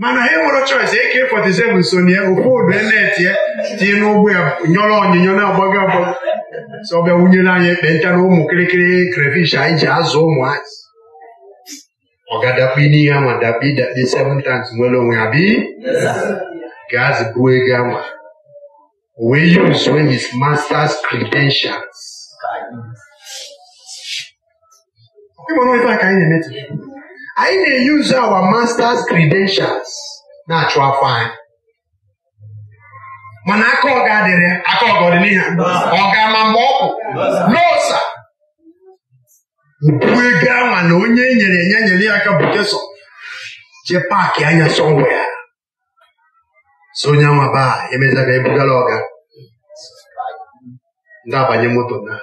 mana ha nwere choice eke fọtisebụl sonye ofodu na tinye n'ụgbọ ya nyọrọ onyinyo na-agbago agbago sọ ọbịa wunyere anyị ekpenta na ụmụ kịrịkịrị krefish anyị ji azụ ụmụ azị ọ ga-adakpu n'ihe ama dakpu idakpe seven nwere onwe ya bi gaazị bụ ego ama wee use when his master's credentials ịmana ka anyị na-emetụ anyị na-eyuzu awa masters credentials na-achụ afọ anyị mana aka ọga dịrị aka ọga ọdị ọga ọ ama mgbe ọ kwụ n'ọsa ubu ego na onye e nyere enye nyere ya aka bụkesọ jee paakị anya sọnwe ya so onye anwa baa emezaba ebugala ọga ndị abanye moto naa.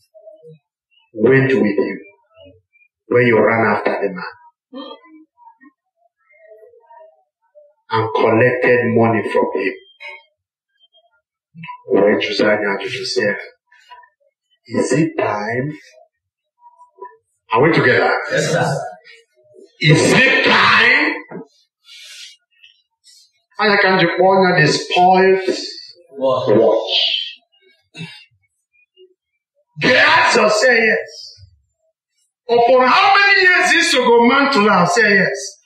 went with you when you ran after the man and collected money from him. When Josiah to Joseph, is it time? Are we together? Yes, sir. Is it time? And I can not you corner the spoils watch. Gehazi say yes. Upon how many years is man to Mantula say yes.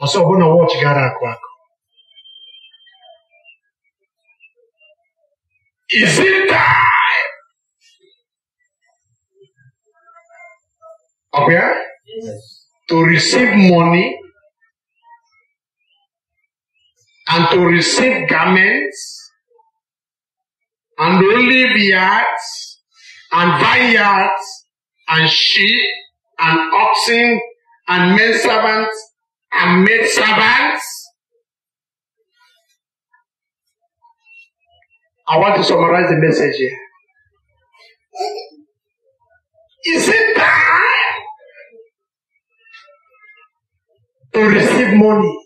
Also, I'm going to watch Garakwa. Is it time? Okay? Yes. To receive money and to receive garments and to live yards and vineyards, and sheep, and oxen, and men servants, and maid servants. I want to summarize the message here. Is it time to receive money?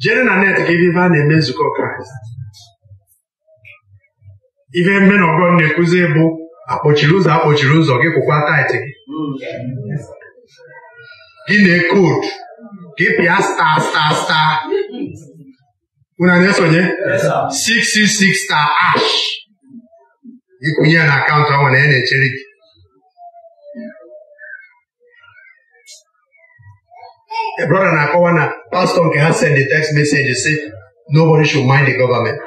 Jane and Annette gave Ivan a name to call Christ. ihe mme na ọgọ na-ekwuzi bụ akpọchiri ụzọ akpọchiri ụzọ gị kwụkwa taịtị gị na-ekod gị pịa sta sta star unu na-esonye 666 star ash ịkwụnye ya na akaụntụ ahụ na ya na-echere gị Ebrọda na-akọwa na pastọ nke ha send text message si nobody should mind the government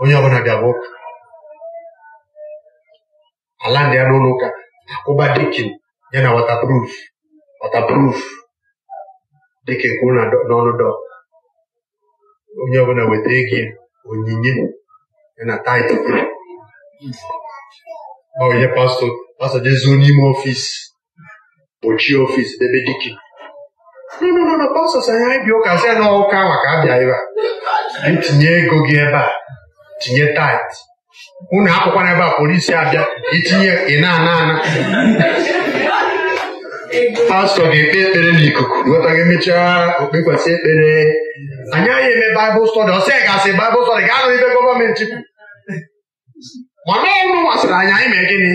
onye ọbụla bịa bụ ala ndị ya n'ụlọ ụka akwụba dikin ya na watapruf watapruf dekin kwuru n'ọnụ dọ onye ọbụla weta ego onyinye ya na taịtụ ọ ihe pastọ pastọ jezuo n'ime ọfịsi kpochie ọfịsi debe dikin nọ pastọ si anya ịbịa ụka sị ya na ụka maka abịa ebe a anyị tinye ego gị ebe a tinye taịtị unu na ebe a polisi abịa itinye ị na-ana ana pastọ ga-ekpe ekpere n'ikuku nweta gị emechaa okpekwasị ekpere anyị anyị eme baịbụl stọdị ọsị gasị baịbụl stọdị ga-anụ ibe gọọmenti kwuru mana ọnụ masịrị anyị anyị mee gịnị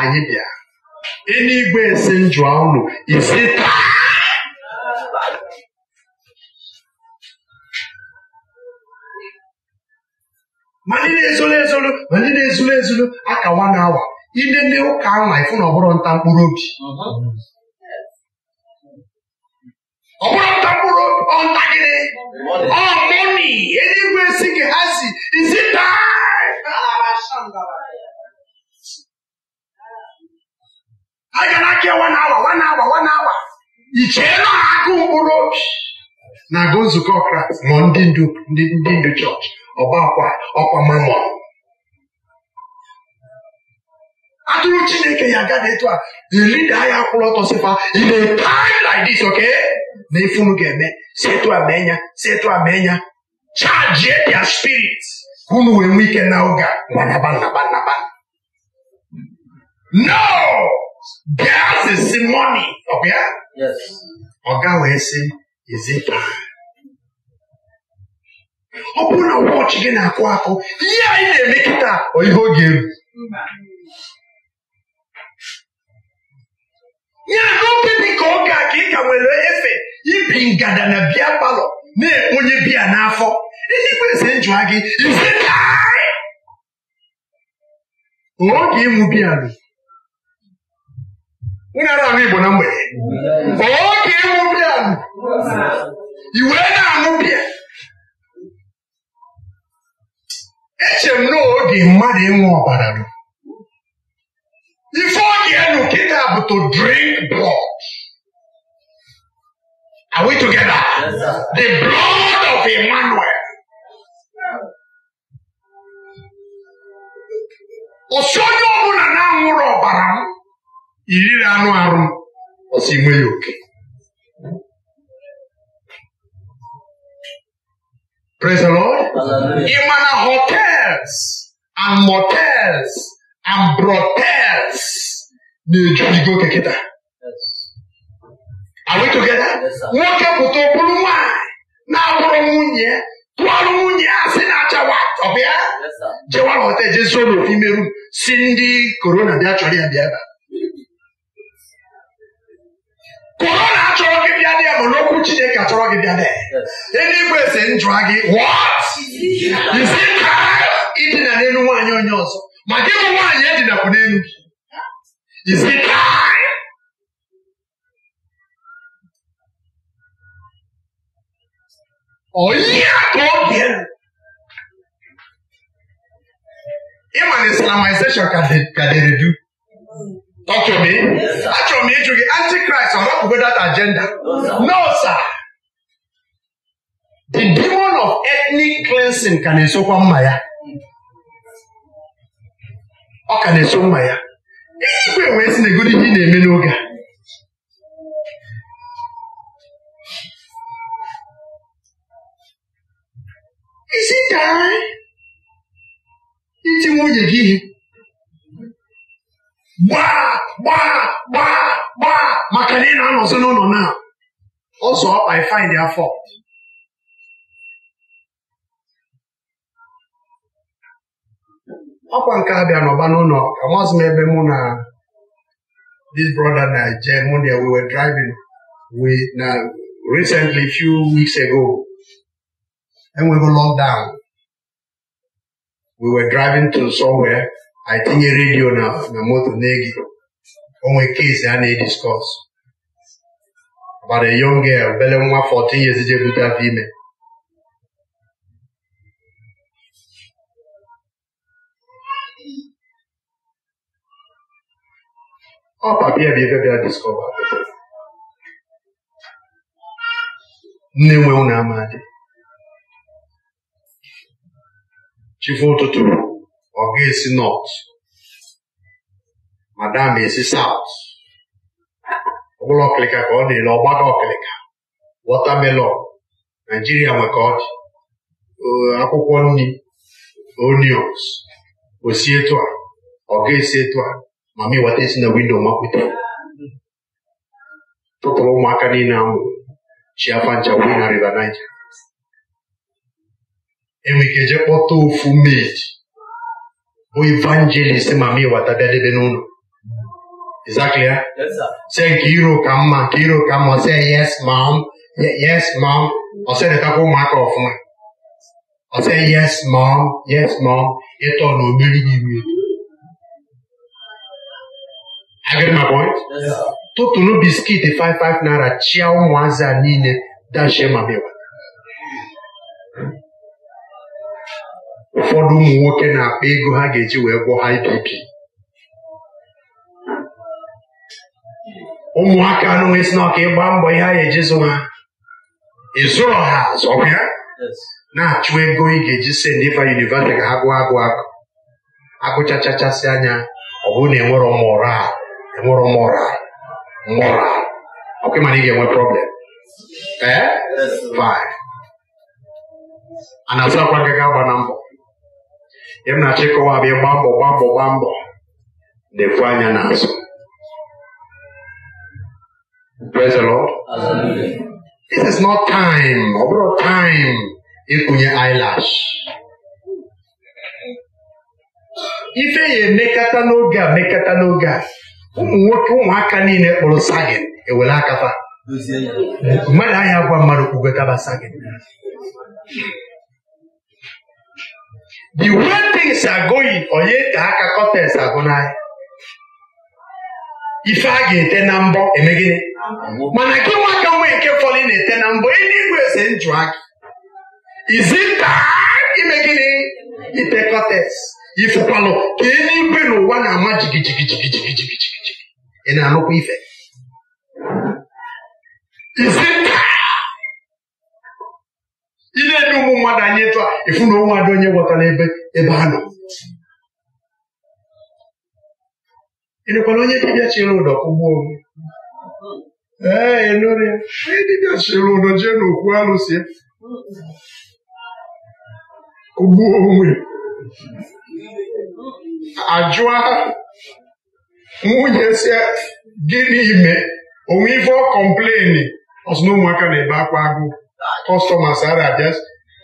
anyị bịa eluigwe si njụa unu isi taa ma ndị na-ezolo ezolo ma ndị na-ezolo ezolo aka nwa awa ile ndị ụka anwa ịfụ na ọ bụrụ nta mkpụrụ obi ọbụrụ nta mkpụrụ ọnta gịnị ọ mọni eluigwe si gị ha si isi taa a na-aka nwa na-awa nwa na-awa nwa awa ichee na akụ mkpụrụ obi na-agụ nzukọ kraịst ma ndị ndu chọọchị ọkwa akwa ọkwa mamọ atụrụ chineke ya agaghị etu a the leader ya kwụrụ ọtọ sịkwa in a time like this okay na ife unu ga-eme si etu a mee ya si charge their spirit ka unu wee nwee ike na oge gbanaba nnaba nnaba no gas is money ọbịa ọga wee sị is it ọ bụrụ na wọchị gị na-akụ akụ ihe anyị na-eme kịta ọ ihe oge eru ya na obi ka oge a ka ị ka nwere efe ibi ngada na bịa palọ na-ekponye biya n'afọ ndị kwesịrị njụa gị ise oge ịṅụ biya nụ unu ara ahụ Igbo na mgbede oge ịṅụ biya nụ i na-aṅụ biya eche m na oge mmadụ ịṅụ ọbara ruru ife ọ ga-enu kịta bụ to drink blood are we together the blood of Emmanuel ọsị onye ọbụla na-aṅụrụ ọbara m iriri anụ arụ ọsị nwe oke Praise the Lord. Hallelujah. Even hotels and motels and brothels na go together. Are we together? Nwoke pụta okpuru nwanyị na-abụrụ nwunye tụọrụ nwunye a sị na-acha wat ọ bịa jewara hotel jezuo n'ofu ime rum si ndị korona bịa chọrọ ya bịa ebe a korona achọrọ gị bịa ya ma n'okwu chineke achọrọ gị bịa dee eluigwe si njụa gị isi ka idina n'elu nwaanyị onye ọzọ ma gị bụ nwaanyị edinakwu n'elu gị isi ka onye ka ọ bịara islamization ka Achọrọ m ịjụ gị antikraịst ọ hapụgo that agenda no sir the demon of ethnic cleansing ka na-esokwa mma ya ọ ka na-eso mma ya ikwe wee si na egodi ihe na-eme n'oge a isi daa iti nwunye gị ihe gbaa gbaa gbaa gbaa maka na ị na-anọzi n'ụlọ na ọzọ ọkpa find their fault ọkwa nke a bịa n'ọba n'ụlọ amazi m ebe mụ na this brother na je mụ na we were driving we na recently few weeks ago enweghị lockdown we were driving to somewhere anyị tinye redio na na moto na-ege onwe é a na-ediskọs about a young girl obele nwa 14 years je bute afọ ime ọ a bụ ebe bịa não nne nwe ụnụ amadị chifu ụtụtụ ọ ga-esi nọt madam esi saut ọbụla ọkịlịka ka ọ na-ele ọgbada ọkịlịka watamelon naijiria nwe ka akwụkwọ nri onions osi etu a ọ ga-esi etu a ma m wata esi na windo mapụta tụtụrụ ụmụaka niile ahụ chi afa na river Niger enwe ike jee kpọta ofu meji evangelism ami watadadebe n'ụlọ Exactly. Huh? Yes, sir. Say Kiro Kama, Kiro Kama, say yes, mom, yes, mom. Or say the taco mark off me. Or say yes, mom, yes, mom. It all no really give me. I get my point? Yes, sir. Totunu biscuit, five, five naira, chia, mwaza, nine, dashe mabewa. ụfọdụ ụmụ nwoke na-akpa ego ha ga-eji wee gwọ IBP ụmụaka anụnwe si na ọka ịgba mbọ ihe a ga-eji zụ ha ịzụrọ ha azụ ya na-achụ ego ị ga-eji send ife yunivasịtị ka ha gụọ agụ agụ agụchachachasị anya ọ bụrụ na enwerọ mụra enwerọ mụra. mọra ọkwa ịma na ị ga-enwe problem ee eh? fine a na-azụ akwa gị gaba na mbọ ịmnachi kọwab ịgba mbọ gba mbọ gba mbọ ekwu anya n'azụ praise the Lord is not time ọ bụrụ time ịkụnye eyelash ife ya emekata n'oge a mekata n'oge a ụmụ nwoke ụmụaka niile kpụrụ sagin ewere akafa mmadụ anya gwa mmadụ kpụgotaba sagin the way things are going onye ka aka kọtes agụ n'ahịa ife a ga-ete na mbọ emegide mana gị nwaka nwee nke fọlị na-ete na mbọ eluigwe ese njụ aka izinta ime gịnị ite kọtes ifekwalụ ka eluigwe n'ụwa na-ama jigijigijigijigijigijigi ị na-anụkwa ife ị na-ede ụmụ mmadụ anyị etu a ịfụ na onwe onye gwọtara ebe ebe a nọ ịnekwana onye dibịa chịrị ụdọ kụgbuo ee nụrụ onye dibịa chịrị ụdọ jee n'okwu alụsị kụgbuo onwe ajụa nwunye si gịnị ime onwe ife ọ kọmpleni ọsụ ụmụaka na-ebe akwa agụụ kọstọma sara abịa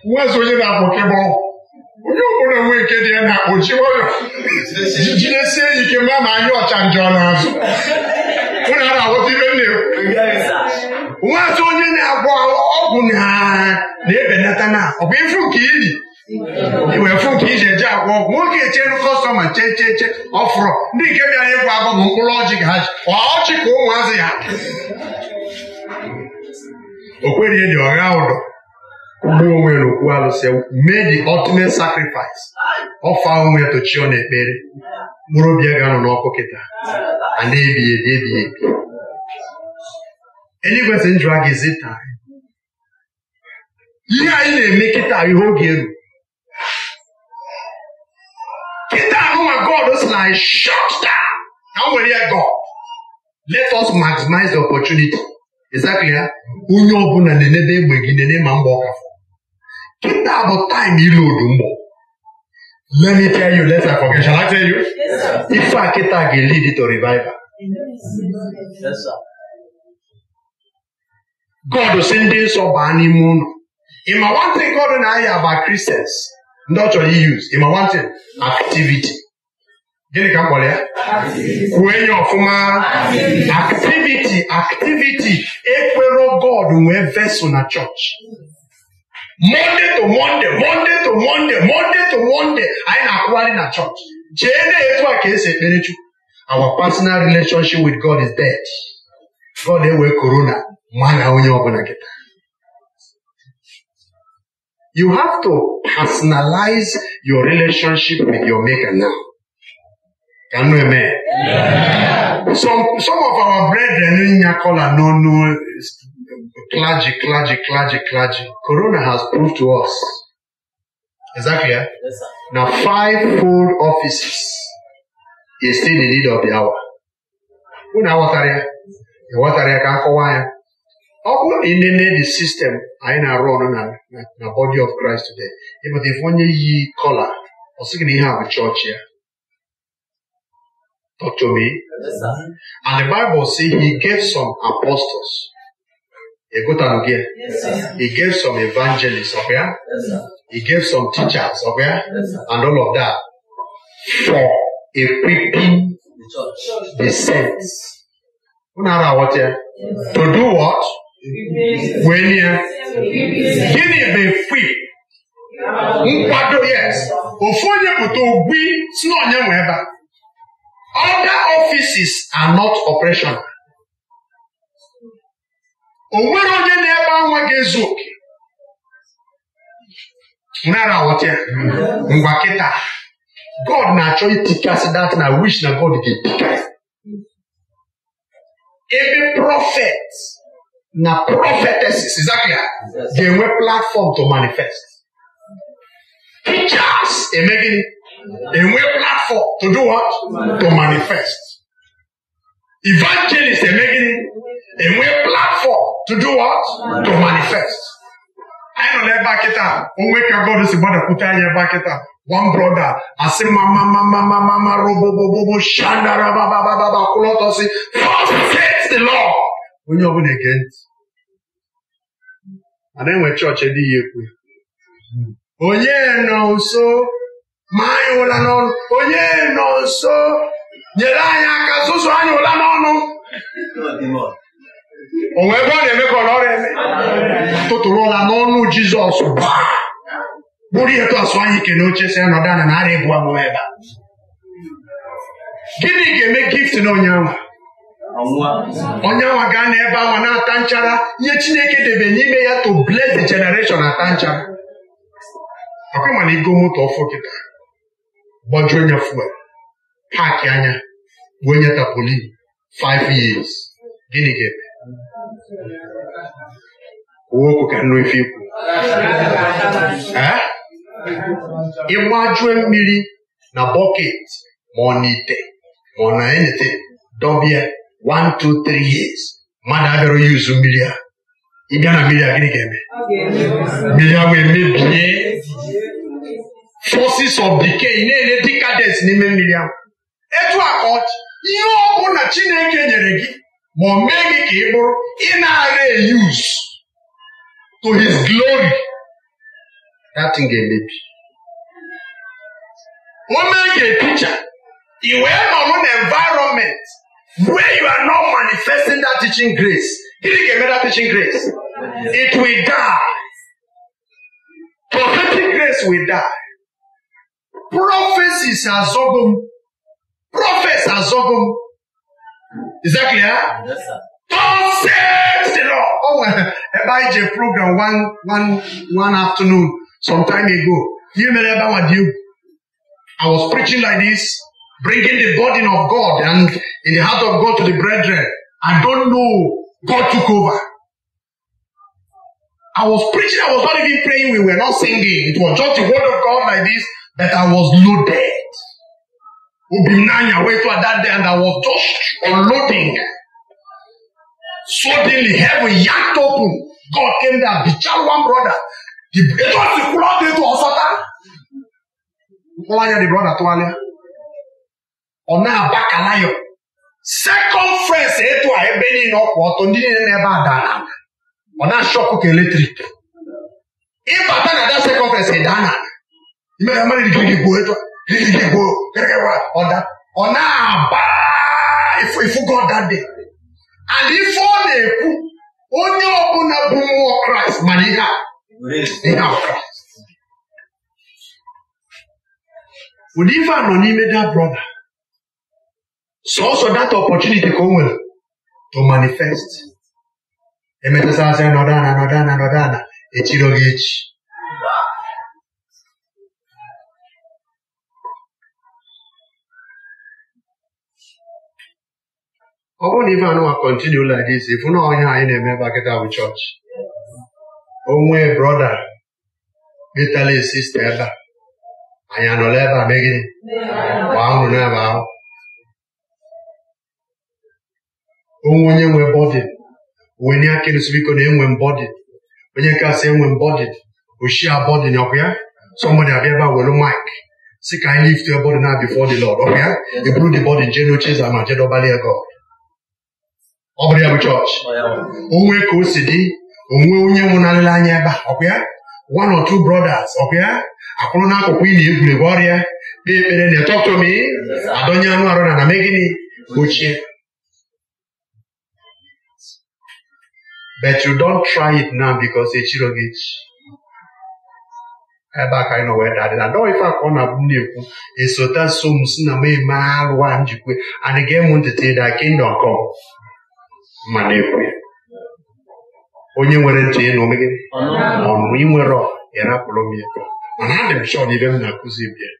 nwezi onye na-akpọkebe ọgwụ onye ọbụla nwee nke dị ya na oji ọrịa jidesie ya ike mma ma anyị ọcha njọ n'azụ ụnụ ara aghọta ibe nne na-ekwu nwezi onye na-agwọ ọgwụ na ebelata na ọ bụ ifu nke iyi iwefu nke iji eji agwọ ọgwụ nwoke echenu kọstọma chee chee chee ọfụrụ ndị nke bịara ịgwa agwọ bụ mkpụrụ ọjị ga ha ji ọjị ka ụmụazị ya o kweghị dị ọgha ụdọ mgbe onwe n'okwu alụsị mee the ultimate sacrifice ọfa onwe tochio na ekpere mkpụrụ obi ya ga-anọ n'ọkụ kịta a na-ebighị ebi ebighị ebi eluigwe sị njụ aga ezi taa ihe anyị na-eme kịta ihe oge elu kịta ahụnwa God si na shut down na nwere ya God let us maximize the opportunity ịzakụ ya onye ọbụla na-enede egbe gị nene ma mgba ọkafọ kịta bụ taịm ilodu mgbọ let me tell you let's forget shall I tell you ife a kịta ga-elid to revival God si ndị nsọ baa n'ime ụlọ ịma nwantị God na ahịa ba Christians ndị ọ chọrọ use ịma nwantị activity gịnị ka m kpọrọ ya kwue ya ọfụma activity activity ekwero god nwee vesụl na chọọchị monde to monde monde to monde monde to monde anyị na-akwụgharị na chọọchị jee na etu a ka esi ekpere chukwu our personal relationship with god is dead god ewe korona mana onye ọbụla kịta you have to personalize your relationship with your maker now Ka you amen? Some of our brethren in Yakola no no clergy, clergy, clergy, clergy. Corona has proved to us. exactly ah, na Yes, full offices is still in need of the hour. Unu aghọtara ya? Ịghọtara ya ka akọwa ya. Ọ bụrụ na ịnene the system anyị na-arụ ọrụ na na body of Christ today, ịpụta ife onye yi kola, ọ sịghị na ihe a bụ chọọchị ya Talk to me. Yes, and the Bible says he gave some apostles. He got down again. Yes, he gave some evangelists up here. Yes, he gave some teachers up here. and all of that for equipping the saints. Unara what To do what? When here? Gini be free, Nkwado yes. Ofu onye bụ ta ogbi si na onye ebe a. Other offices are not operational. O nwere onye na-ebe anwa ga-ezu oke. Nara aghọta ya. Ngwa kịta. God na-achọ itikasị dat na wish na God ga-etikasị. Ebe prophet na prophetesses exactly ga-enwe platform to manifest. Preachers eme a way platform to do what? To manifest. Evangelists are making a way platform to do what? To manifest. I know Ẹnu lẹ bá kíta, òun wéka God is about sì gbọ́dọ̀ kúta yẹ bá kíta. One brother, I àti mama mama mama mama robobobobo ṣandara babababa kúlọ́tọ̀ sí. First faith the law. Onye ọbụla ege ntị. Ada enwe chọọchị dị ya Oh yeah, nọ so. ma anyị ụla n'ọnụ onye nọ nso nyere anyị aka zụzụ anyị ụla n'ọnụ onwe ebe ọ na-eme ka ọlọrụ eme tụtụrụ ụla n'ọnụ jizọs bụrụ ihe tọsụ anyị ike oche si anọdụ anya na ara ebu amụma ebe a gịnị ga-eme gift na onyanwa onyanwa gaa n'ebe ahụ na-ata nchara nye chineke debe n'ime ya to bless the generation ata nchara ọkwa mana ọfụ kịta gbajuo onye fuel paaki anya bụ onye tapoli 5 years gịnị ga-eme okwu ka nnu ife ikwu ịgbajue mmiri na bọket ma ọ na ite ma ọ na enete dọbịa 1 2 3 years mmadụ abịara yuzu mmiri a ịbịa na mmiri a gịnị ga-eme mmiri a wee emebie sources of decay na-enye decadence n'ime mmiri ahụ etu a ka ihe ọ na Chineke nyere gị ma o mee gị ka ị bụrụ ị na-ara use to his glory that thing ga-emebi o mee gị epicha i wee nọrọ na environment where you are not manifesting that teaching grace gịnị ga-eme that teaching grace it will die prophetic grace will die prophecies are zogum. Prophets are zogum. Is that clear? Yes, sir. God said the Lord. Oh, Abijah program one, one, one afternoon, some time ago. You remember what you? I was preaching like this, bringing the burden of God and in the heart of God to the brethren. I don't know. God took over. I was preaching, I was not even praying, we were not singing. It was just the word of God like this. that I was loaded. Obinanya went to that day and I was just unloading. Suddenly heaven yanked open. God came there, the child one brother. The brother was the blood into Osata. Nkwalanya the brother Tualia. Ọ na-abakala ya. Circumference etu a ebe niile ọkwa ọtọ ndị niile n'ebe a dara. Ọ na-ashọkụ ka eletrik. Ịbata na that circumference ịdana. mmiri amara irigirigi gwuo etu irigirigi gwuo ọda ọ na-aba ịfụgo ọda dị and ife ọ na-ekwu onye ọbụla bụ mmụọ kraịst mana ihe a ihe a kraịst ụdị ife a nọ n'ime da brọda sọọsọ data opọtuniti ka o nwere to manifest emetụtasịrị nọdana nọdana nọdana echiro gị echi ọ bụrụ na ife anụnwa kọntinu like this ifu na ọhịa anyị na-eme gbakịta bụ chọọchị onwe brọda detala sista ebe a anyị anọla ebe a megịnị gbaa ụrụ n'ebe ahụ onwe onye nwe bọdị wenye aka ịrụsị biko na enwe mbọdị onye kasị enwe mbọdị oshi abọdị na ọkwa ya sọmbọdị abịa ebe a welu maịk si ka anyị lift your body now before the Lord ọkwa ya eburu the body jee n'oche eze ma jedobali ego ọ bụrụ ya bụ chọọchị onwe ka o si dị onwe onye nwụnarịrị anya ebe a ọkwa ya one or two brothers ọkwa ya akwụrụ n'akụkụ ị na-egwuregwu ọrịa kpee ekpere na-etọtomi adọnye anụ arụ na na gịnị gbochie. but you don't try it now because echiro gị echi ebe a ka anyị nọ wee dadị na dọọ ife akọ na-abụ na-ekwu esota so m si na m eme arụ a njikwe and ga-emụ ntụtụ ịda kingdom come manekwe onye nwere ntị ịnụ megide ọnụ inwere ịrapụrụ m ya mana adị m shọọ n'ibe m na-akụzi bịa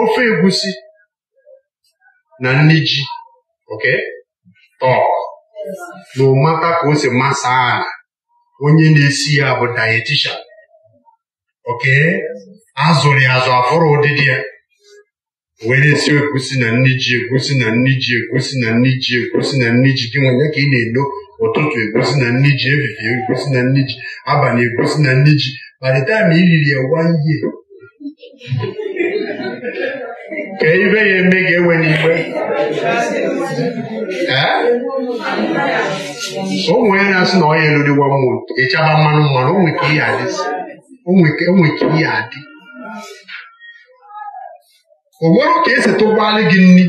ofe Egwusi na nri ji oke tọọ na ụmata ka o si masa ala onye na-esi ya bụ dayetishan oke azụrụ ya azụ afụrụ ụdịdị ya wee na-esi na nne ji egosi na nne ji egosi na nne ji egosi na nne ji gị nwa ka ị na-elo ụtụtụ egusi na nne ji efifie egosi na nne ji abalị na nne ji kparịta ma ị riri ya ka ibe ya eme ga-ewe n'igbe ụmụ ya na-asị na ọ ya eluriwa mmụọ ịchaba mmanụ mmanụ onwe ka ihe adị o nwere ka esi tụgbalị gị nri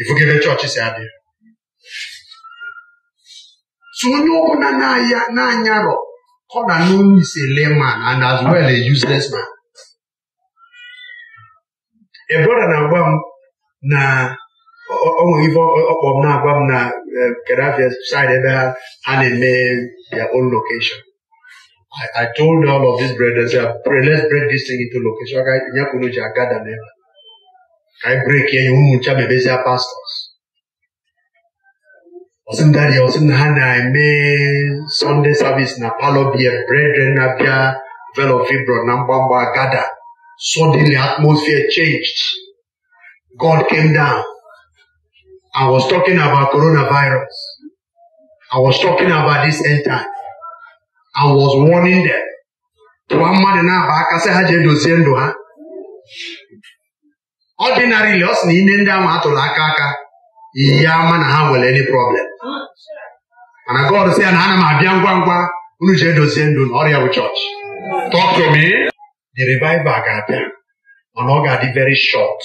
ifugebe chọọchị si abịa tụnye onye ọbụla na anya na ọ na layman and as well a useless man a na-agwa m na onwere ife ọkpọ m na-agwa m na eh, Gaddafi side ebe ha na-eme ya own location I, I told all of these brothers, let's break this thing into location. I break here, you be pastors. ọsị m dadi ọsị m ha na Sunday service. savis na palọ bie brethren abịa velo fibron na mgbamgba gada suddenly atmosphere changed god came down i was talking about coronavirus i was talking about this end time I was warning them. tụwa mmadụ na-aba aka sị ha ji edozie ndụ ha ọdịnarịli ọ sị na ime ndị ahụ atụrụ aka aka ya ama na ha nwere any problem mana God sị ya na ana m abịa ngwa ngwa unu ji edozie ndụ na ọrịa bụ chọọchị talk to the revival ga-abịa mana ọ ga-adị very short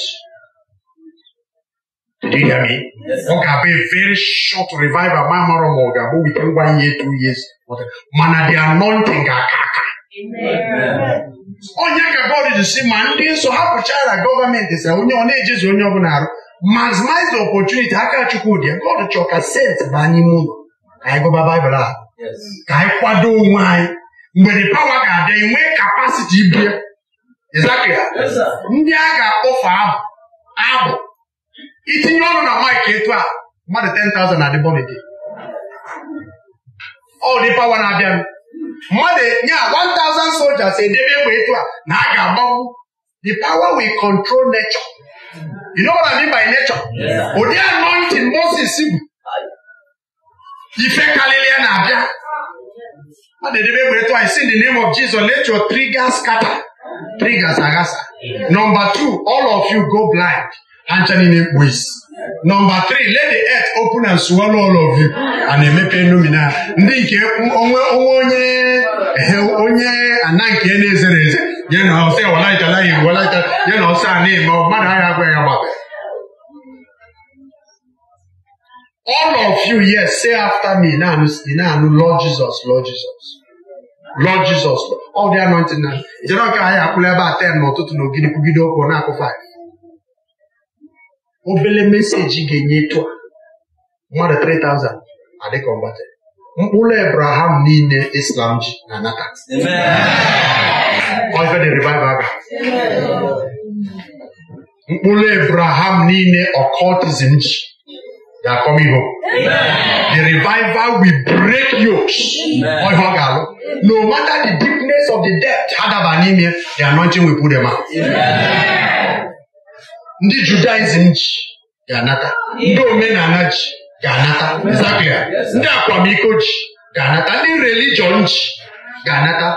Did Ọ ga-abịa very short revival ma mara ma ọ ga-abụ within ngwa year two years ụfọdụ they are anointing ga-aka aka onye ka God ji si ma ndị nsọ hapụchara gọọmenti sa onye ọ na-ejizi onye ọbụla arụ maximize the opportunity aka chukwu Chukwudi God chọọ ka sent baa n'ime ụlọ ka anyị gụba Baịbụl a ka anyị kwado onwe anyị mgbe the pawa ga-adị enwe kapasiti ibie ndị a ga-akpọfe abụ abụ itinye ọnụ na mike etu a mmadụ 10,000 na adịbọlidi ọdị pawa na-abịa mmadụ nye 1000 soldiers edebe egbe etu a na a ga-agbanwu the power will control nature you know what I mean by nature ụdị anointing Moses bụ ife karịrị ya na-abịa mmadụ edebe egbe etu a si in the name of Jesus let your triggers scatter triggers aghasa number two all of you go blind ha ncha niile mkpu isi Number three, let the earth open and swallow all of you and emepe nomina ndị nke onwe onye onye ana nke na-ezere eze ya na ọsọ walaitala igbo ya na ọsọ a na-eme mmadụ agha agwa ya all of you yes say after me na-anụ na-anụ Lord Jesus Lord Jesus Lord Jesus all the ntị na jere ka anyị akwụla ebe a ten n'ụtụtụ na ogidi kwugide na akụfa anyị. obele meseji ga-enye tụa mmadụ 3000 adịka ọgbatị mkpụrụ Abraham niile Islam ji na nata mkpụrụ Abraham niile ọkọtizm ji They are coming home. The revival will break alụ, No matter the deepness of the depth, the anointing will put them out. ndị judaizm ji ga-anata ndị omenala ji ga-anata ndị akwamiko ji ga-anata ndị religion ji ga-anata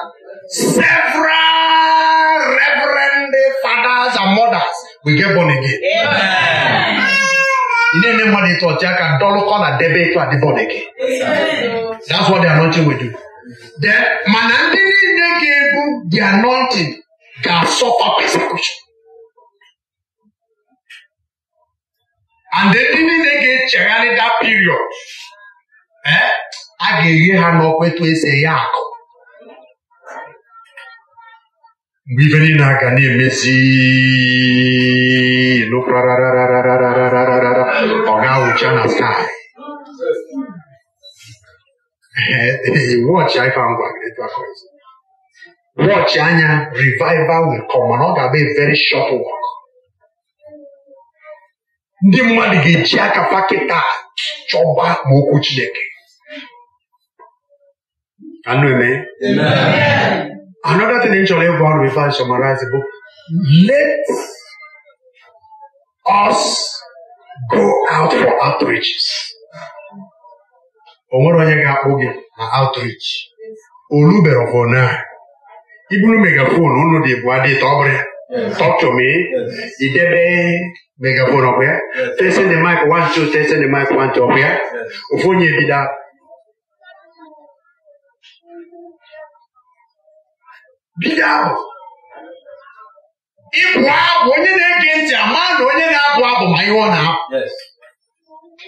several reverend fathers and mothers we get born again. na-ene mmadụ ịtụ ọchị aka dọlụkọ na debe ịtụ adịbọn gị that's what the anointing will do then mana ndị niile ga-ebu the anointing ga-asọfa persecution and ndị niile ga-echegharị that period eh? a ga-eghe ha n'ọkwa etu esi akụ mgbe ibe niile a ga na-emezi ọ ga-awụcha na sky eh, eh, watch anya revival will come ọ ga-abụ very short work ndị mmadụ ga-eji aka pakịta chọba ma okwu Chineke anụ eme another thing chọrọ ịgwa ọrụ ife summarize bụ let us go out for outreaches o nwere onye ga-akpụ gị na outreach olubere ọbụna iburu megafon ụlọ dị ebu adịta ọ ya Yes. Talk to me. Yes. Idebe megaphone ọbịa. Testing the mic one two testing the mic one two ọbịa. Ofu onye bido bida ahụ. Ịbụ abụ onye na-ege ntị ama na onye na-abụ abụ ma ihe ọ na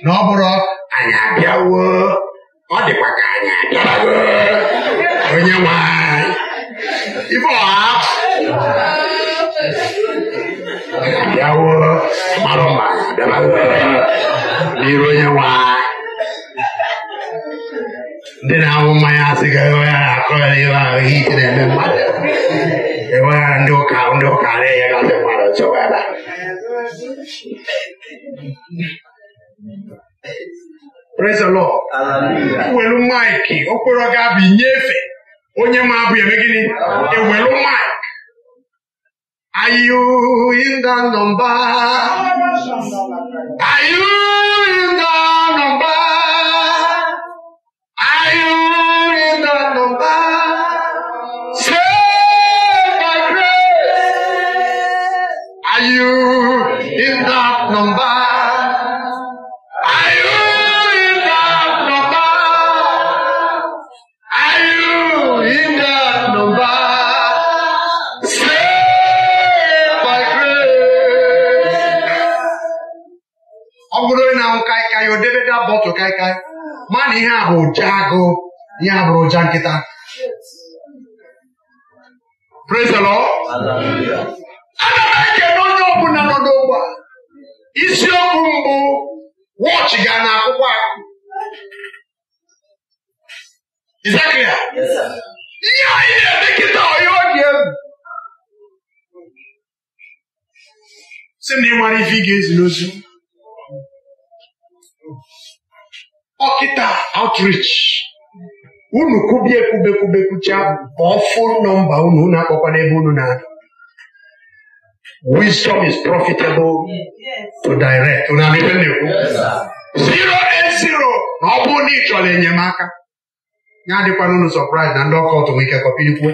Na ọ bụrụ anyị abịawo ọ dịkwa ka anyị abịawo onye nwanyị. Ibe ọha. yawo maloma dabawere n'ironye wa ndị na-awụ mmanya asị ga ewe ya akọrọ ihe ahụ ihe ike na-eme mmadụ ewe ya ndị ụka ndị ụka na-enye gasị mmadụ chọwara Praise the Lord. Ewelu maịkị okporo ga-abụ inyefe onye ma abụ eme gịnị ewelu maịkị are you in the number? Are you in the number? Are you in the number? Save my grace. Are you in that number? kaị kaị, ma na ihe a bụ ụja agụ ihe a ụja nkịta praise the m ekele onye ọbụla nọ n'ogbe a isiokwu mbụ wọchị ga na akwụkwọ akụ Izakria ihe anyị na-eme kịta ọya ọkịta outrich unu kwubie kwubekwubekwucha bụ fon nọmba unu unu akpọkwa n'ebe unu na adụ wisdom is profitable to direct na ekwu zero and zero na ọ bụrụ na ị chọrọ enyemaka ya adịkwana unu sọprise na ndị ọka ọtụnwe ike kọpilikwuo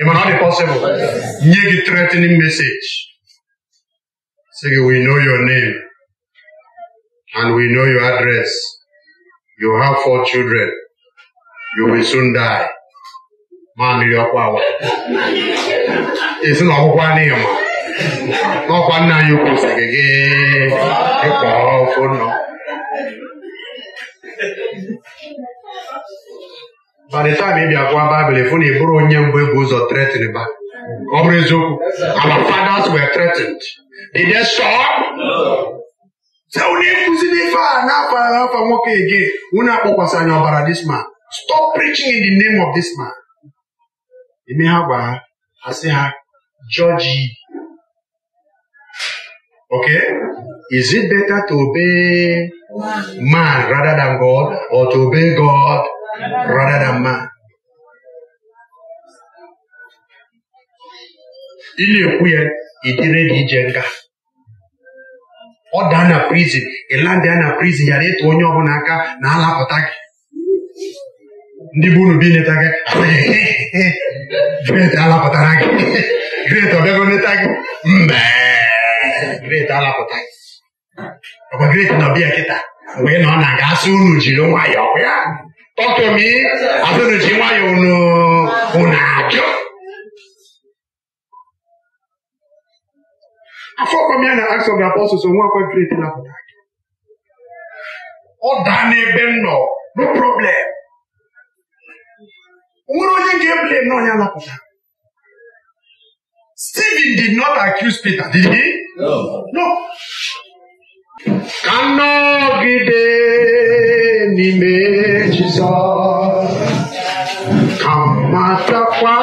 ịmana ọ dị pọsịbụl nye gị tretin mesaje sị gị wi no your name. and we know your address. You have four children. You will soon die. Mamiri ọkwa awa. Esi na anyị n'ihi ma. N'ọkwa nna anyị ukwu sịrị gị ịkpọ ofu nọ. By the time ị bịa Baịbụl, ịfụ na onye mbụ ebu ụzọ threatened ba. Ọ bụrụ eziokwu, our fathers were threatened. Did they stop? No. Say, onye nkuzi n'ife na-afa afa nwoke ege unu akpọkwasị anya ọbara this Stop preaching in the name of this man. Eme ha gwa ha, ha sị ha, judge ye. Okay? Is it better to obey man rather than God or to obey God rather than man? Ị na-ekwu ya, ị dịrị gị ije nga ọ daa na prizin ịlandịa na prizin yara ịtụ onye ọbụla aka na alapụta gị ndị bụ unu bi neta gị gret alapụtara gị gret ọbịago neta gị mbe gret alapụta gị ọkwa gret na ọbịa kịta mgbe nọ na ga asụ unu jiri nwayọọ ya tọtụmi asụ unu ji nwayọọ unu unu ajọ afọkwamya na acts of the apostles onwe akwa kreti na apụta aka ọ daa n'ebe m nọ no problem nwere onye ga-ebule na onye anapụta Stephen did not accuse Peter, did he? No. no. Ka nọgide n'ime Jizọs ka matakwa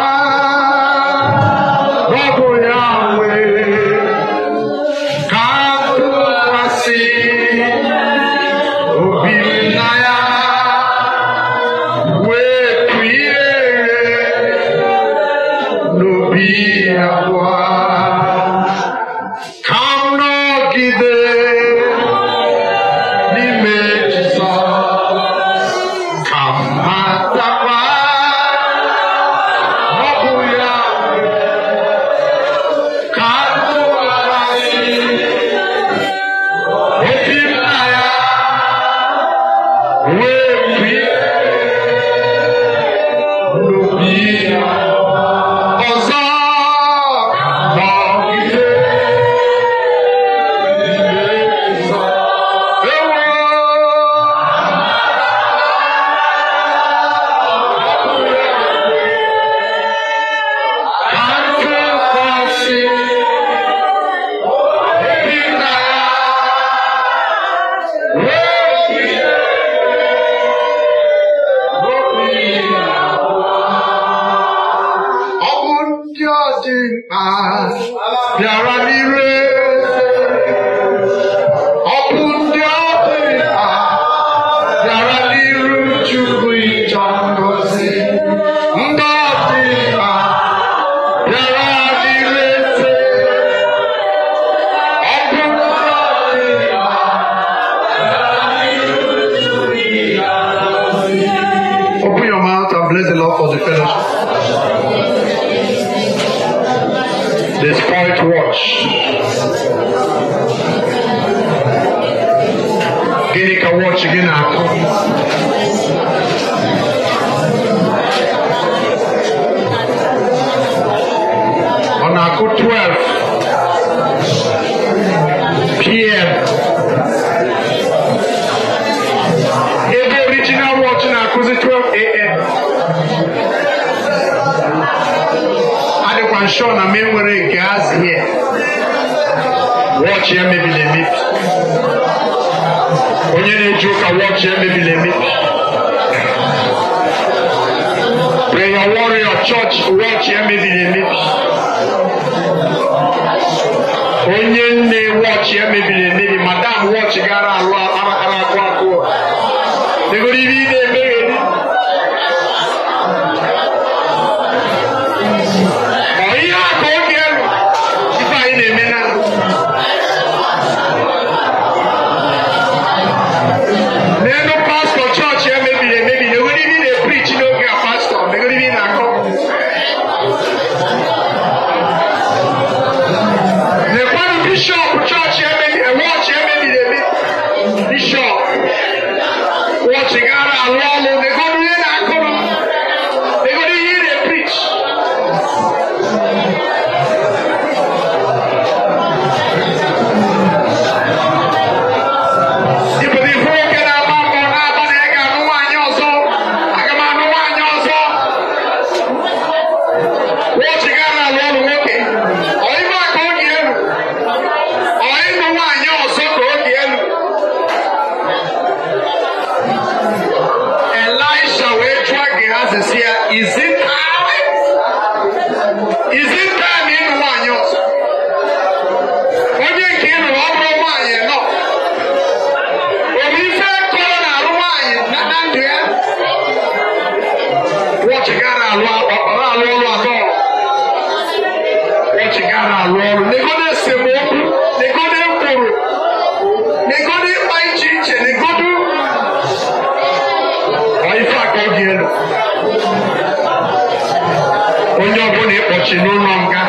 na ịkpọchi n'ụlọ nga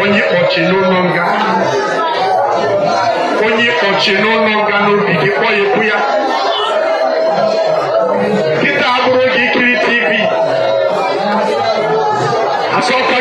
onye ịkpọchi n'ụlọ nga onye ịkpọchi n'ụlọ nga n'obi gị kpọ ya ekwu ya kịta abụrụ gị ikiri tv asọkọ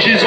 She's.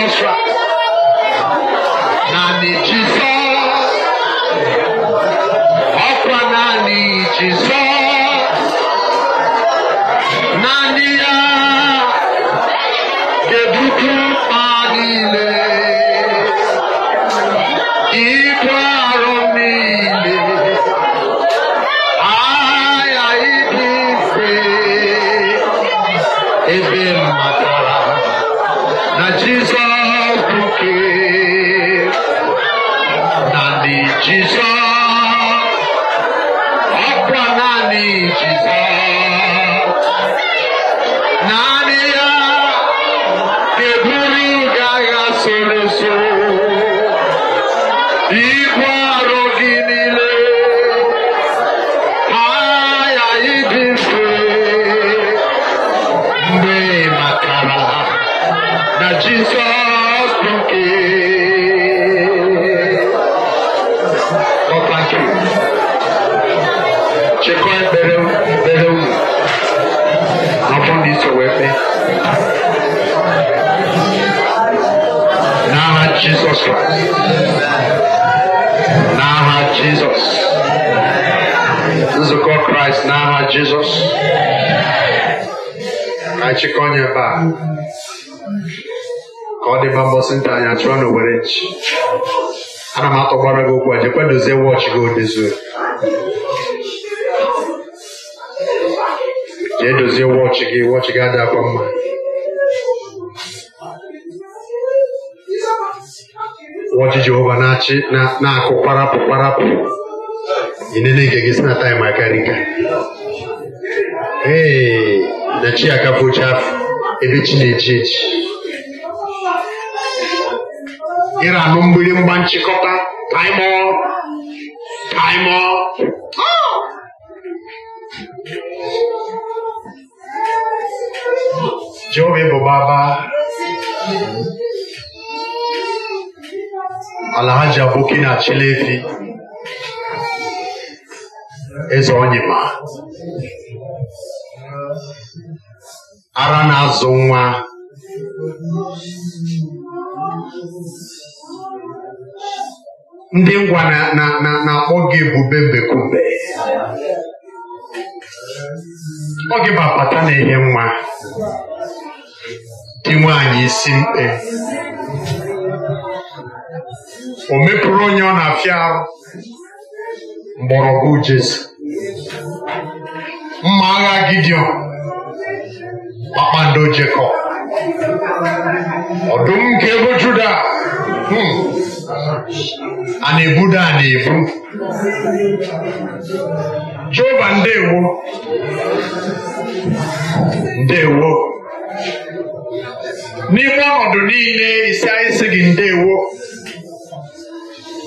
chịkọ onye ebe a ka ọ dịba mbọsị nta anya chụọ na owerechi ana m atọgbara gị okwu a jekwa dozie wọchị gị odozuo jee dozie wọchị gị wọchị gị adị akwa mma wọchị Jehova na-achị na-akụ kparapụ kparapụ ị gị si na taịm akarịka ee na chi akafụcha ebe chi na-eji echi. ịra anụ mgba nchịkọta taịmọ taịmọ Jehova bụ baba Alhaji Aboki na Chilefi eze Onyema ara na-azụ nwa ndị ngwa na-akpọ gị ebube mbekube ọ gị bapata na-enye nwa dị nwaanyị isi mkpe o mepụrụ onye ọ na-afịa mgbọrọgwụ Jesu mma agha gidion kpakpando jekọb ọdụm nke ego juda hmm. a na-ebuda a na-ebu jehova ndewo ndewo n'ime ọnọdụ niile isi anyị si gị ndewo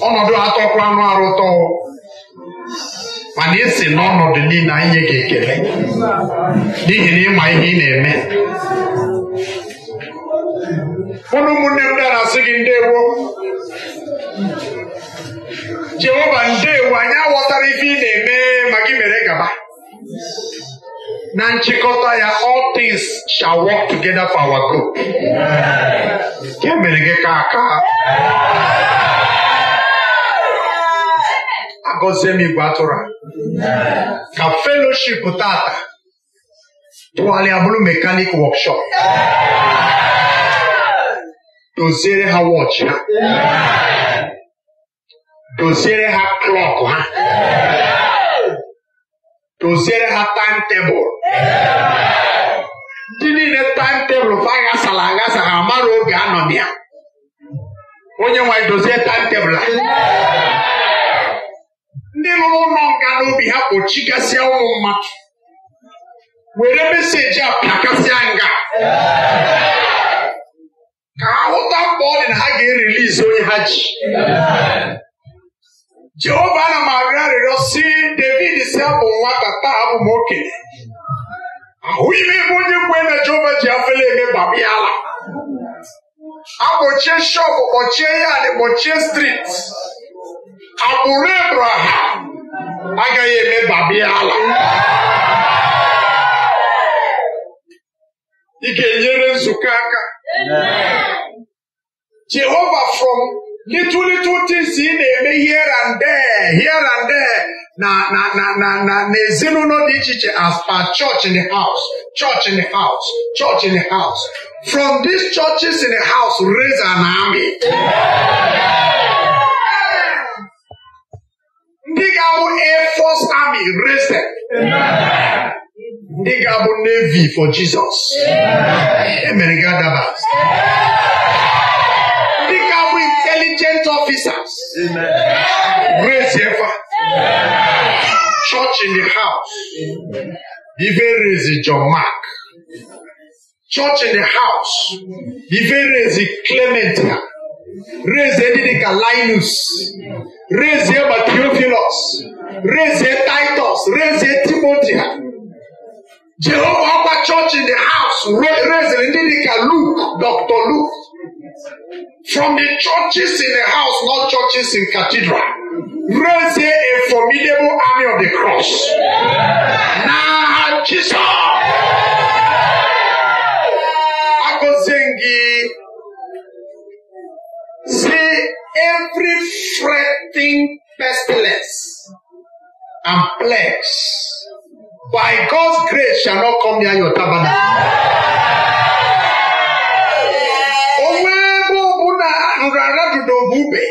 ọnọdụ atọkwa anụ arụ ụtọ. mana esi n'ọnọdụ niile anyị nye gị ekele n'ihi na ịma ihe ị na-eme ụnụ ụmụnne m bịara asị gị ndewo jehova ndewo anyị aghọtara ife ị na-eme ma gị mere gaba na nchịkọta ya all things shall work together for our nke mere gị ka aka agọzie m igwe atụrụ a ka feloship tata tụgharịa bụrụ mekanik wọkshọp doziere ha wọchị ha doziere ha klọk ha doziere ha taim tebụl ndị niile taim tebụl fa aghasa ha amara oge anọ na ya onye nwanyị dozie taim tebụl ha ndị lụrụ ụlọ nga n'obi ha kpochigasịa ụmụ mmadụ were meseji a pakasịa nga ka ha hụta mkpa ọ dị na ha ga-erilizi onye ha ji Jehova ana m arịọ arịrịọ si David si abụ nwata taa abụ m okenye ahụghị m ebe onye kwe na Jehova ji afele eme gbaba ala akpọchie shọpụ kpọchie yadị kpọchie striti agbụrụ ebraham agaghị emebabi ala ị ga-enyere nzukọ aka jehova from little little things ị na-eme here and there here and there na na na na na na ezinụlọ dị iche iche as per church in the house church in the house church in the house from these churches in the house raise an army. Yeah. Ndigabo Air Force Army, raise them. Amen. Ndigabo Navy for Jesus. Amen. Ndigabo Intelligent Officers. Amen. Raise your Church in the house. Even raise John Mark. Church in the house. Even raise Clementia. Raise Didika Linus. Raise Eba Theophilus. Raise Titus. Raise Timothy. Jehovah Upper Church in the house. Raise Didika Luke. Dr. Luke. From the churches in the house, not churches in cathedral. Raise a formidable army of the cross. Now, Jesus. Akozengi. Say every fretting pestilence and plagues by God's grace shall not come near your tabernacle. Onwe ebe ọbụ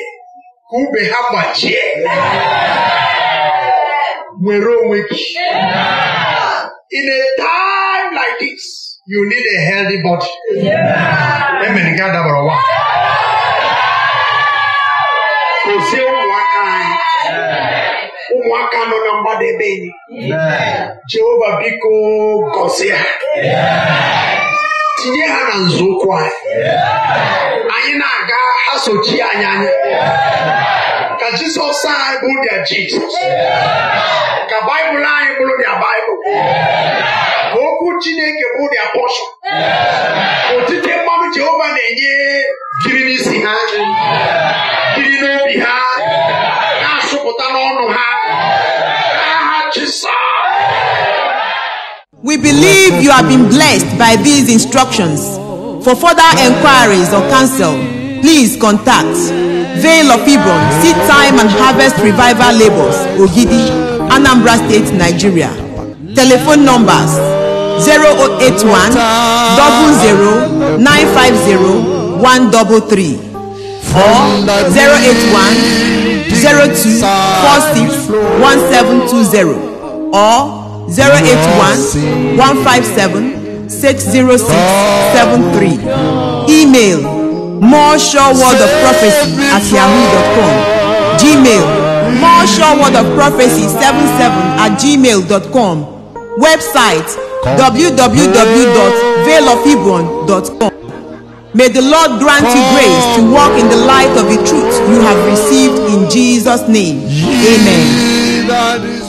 In a time like this, you need a healthy body. Amen. Gaa dabara ụwa. gọzie ụmụaka anyị ụmụaka nọ na mgbadebe enyi jehova biko gọzie ha tinye ha na nzọụkwụ anyị anyị na-aga ha sochi anyị anya ka jizọs anyị bụ dia jizọs ka baịbụl anyị bụrụ dia baịbụl ka okwu chineke bụ dia pọshọn otite mmanụ jehova na-enye jiri n'isi ha n'obi ha na-asụpụta n'ọnụ ha We believe you have been blessed by these instructions. For further enquiries or counsel, please contact Veil of Ibron, Seed Time and Harvest Revival Labels, Ogidi, Anambra State, Nigeria. Telephone numbers 081 00 950 133. Four zero eight one zero two four six one seven two zero or zero eight one one five seven six zero six seven three. Email more sure word of prophecy at yahoo.com. Gmail more sure word of prophecy 77 at gmail.com. Website www.veilofhebron.com. May the Lord grant you grace to walk in the light of the truth you have received in Jesus' name. Amen.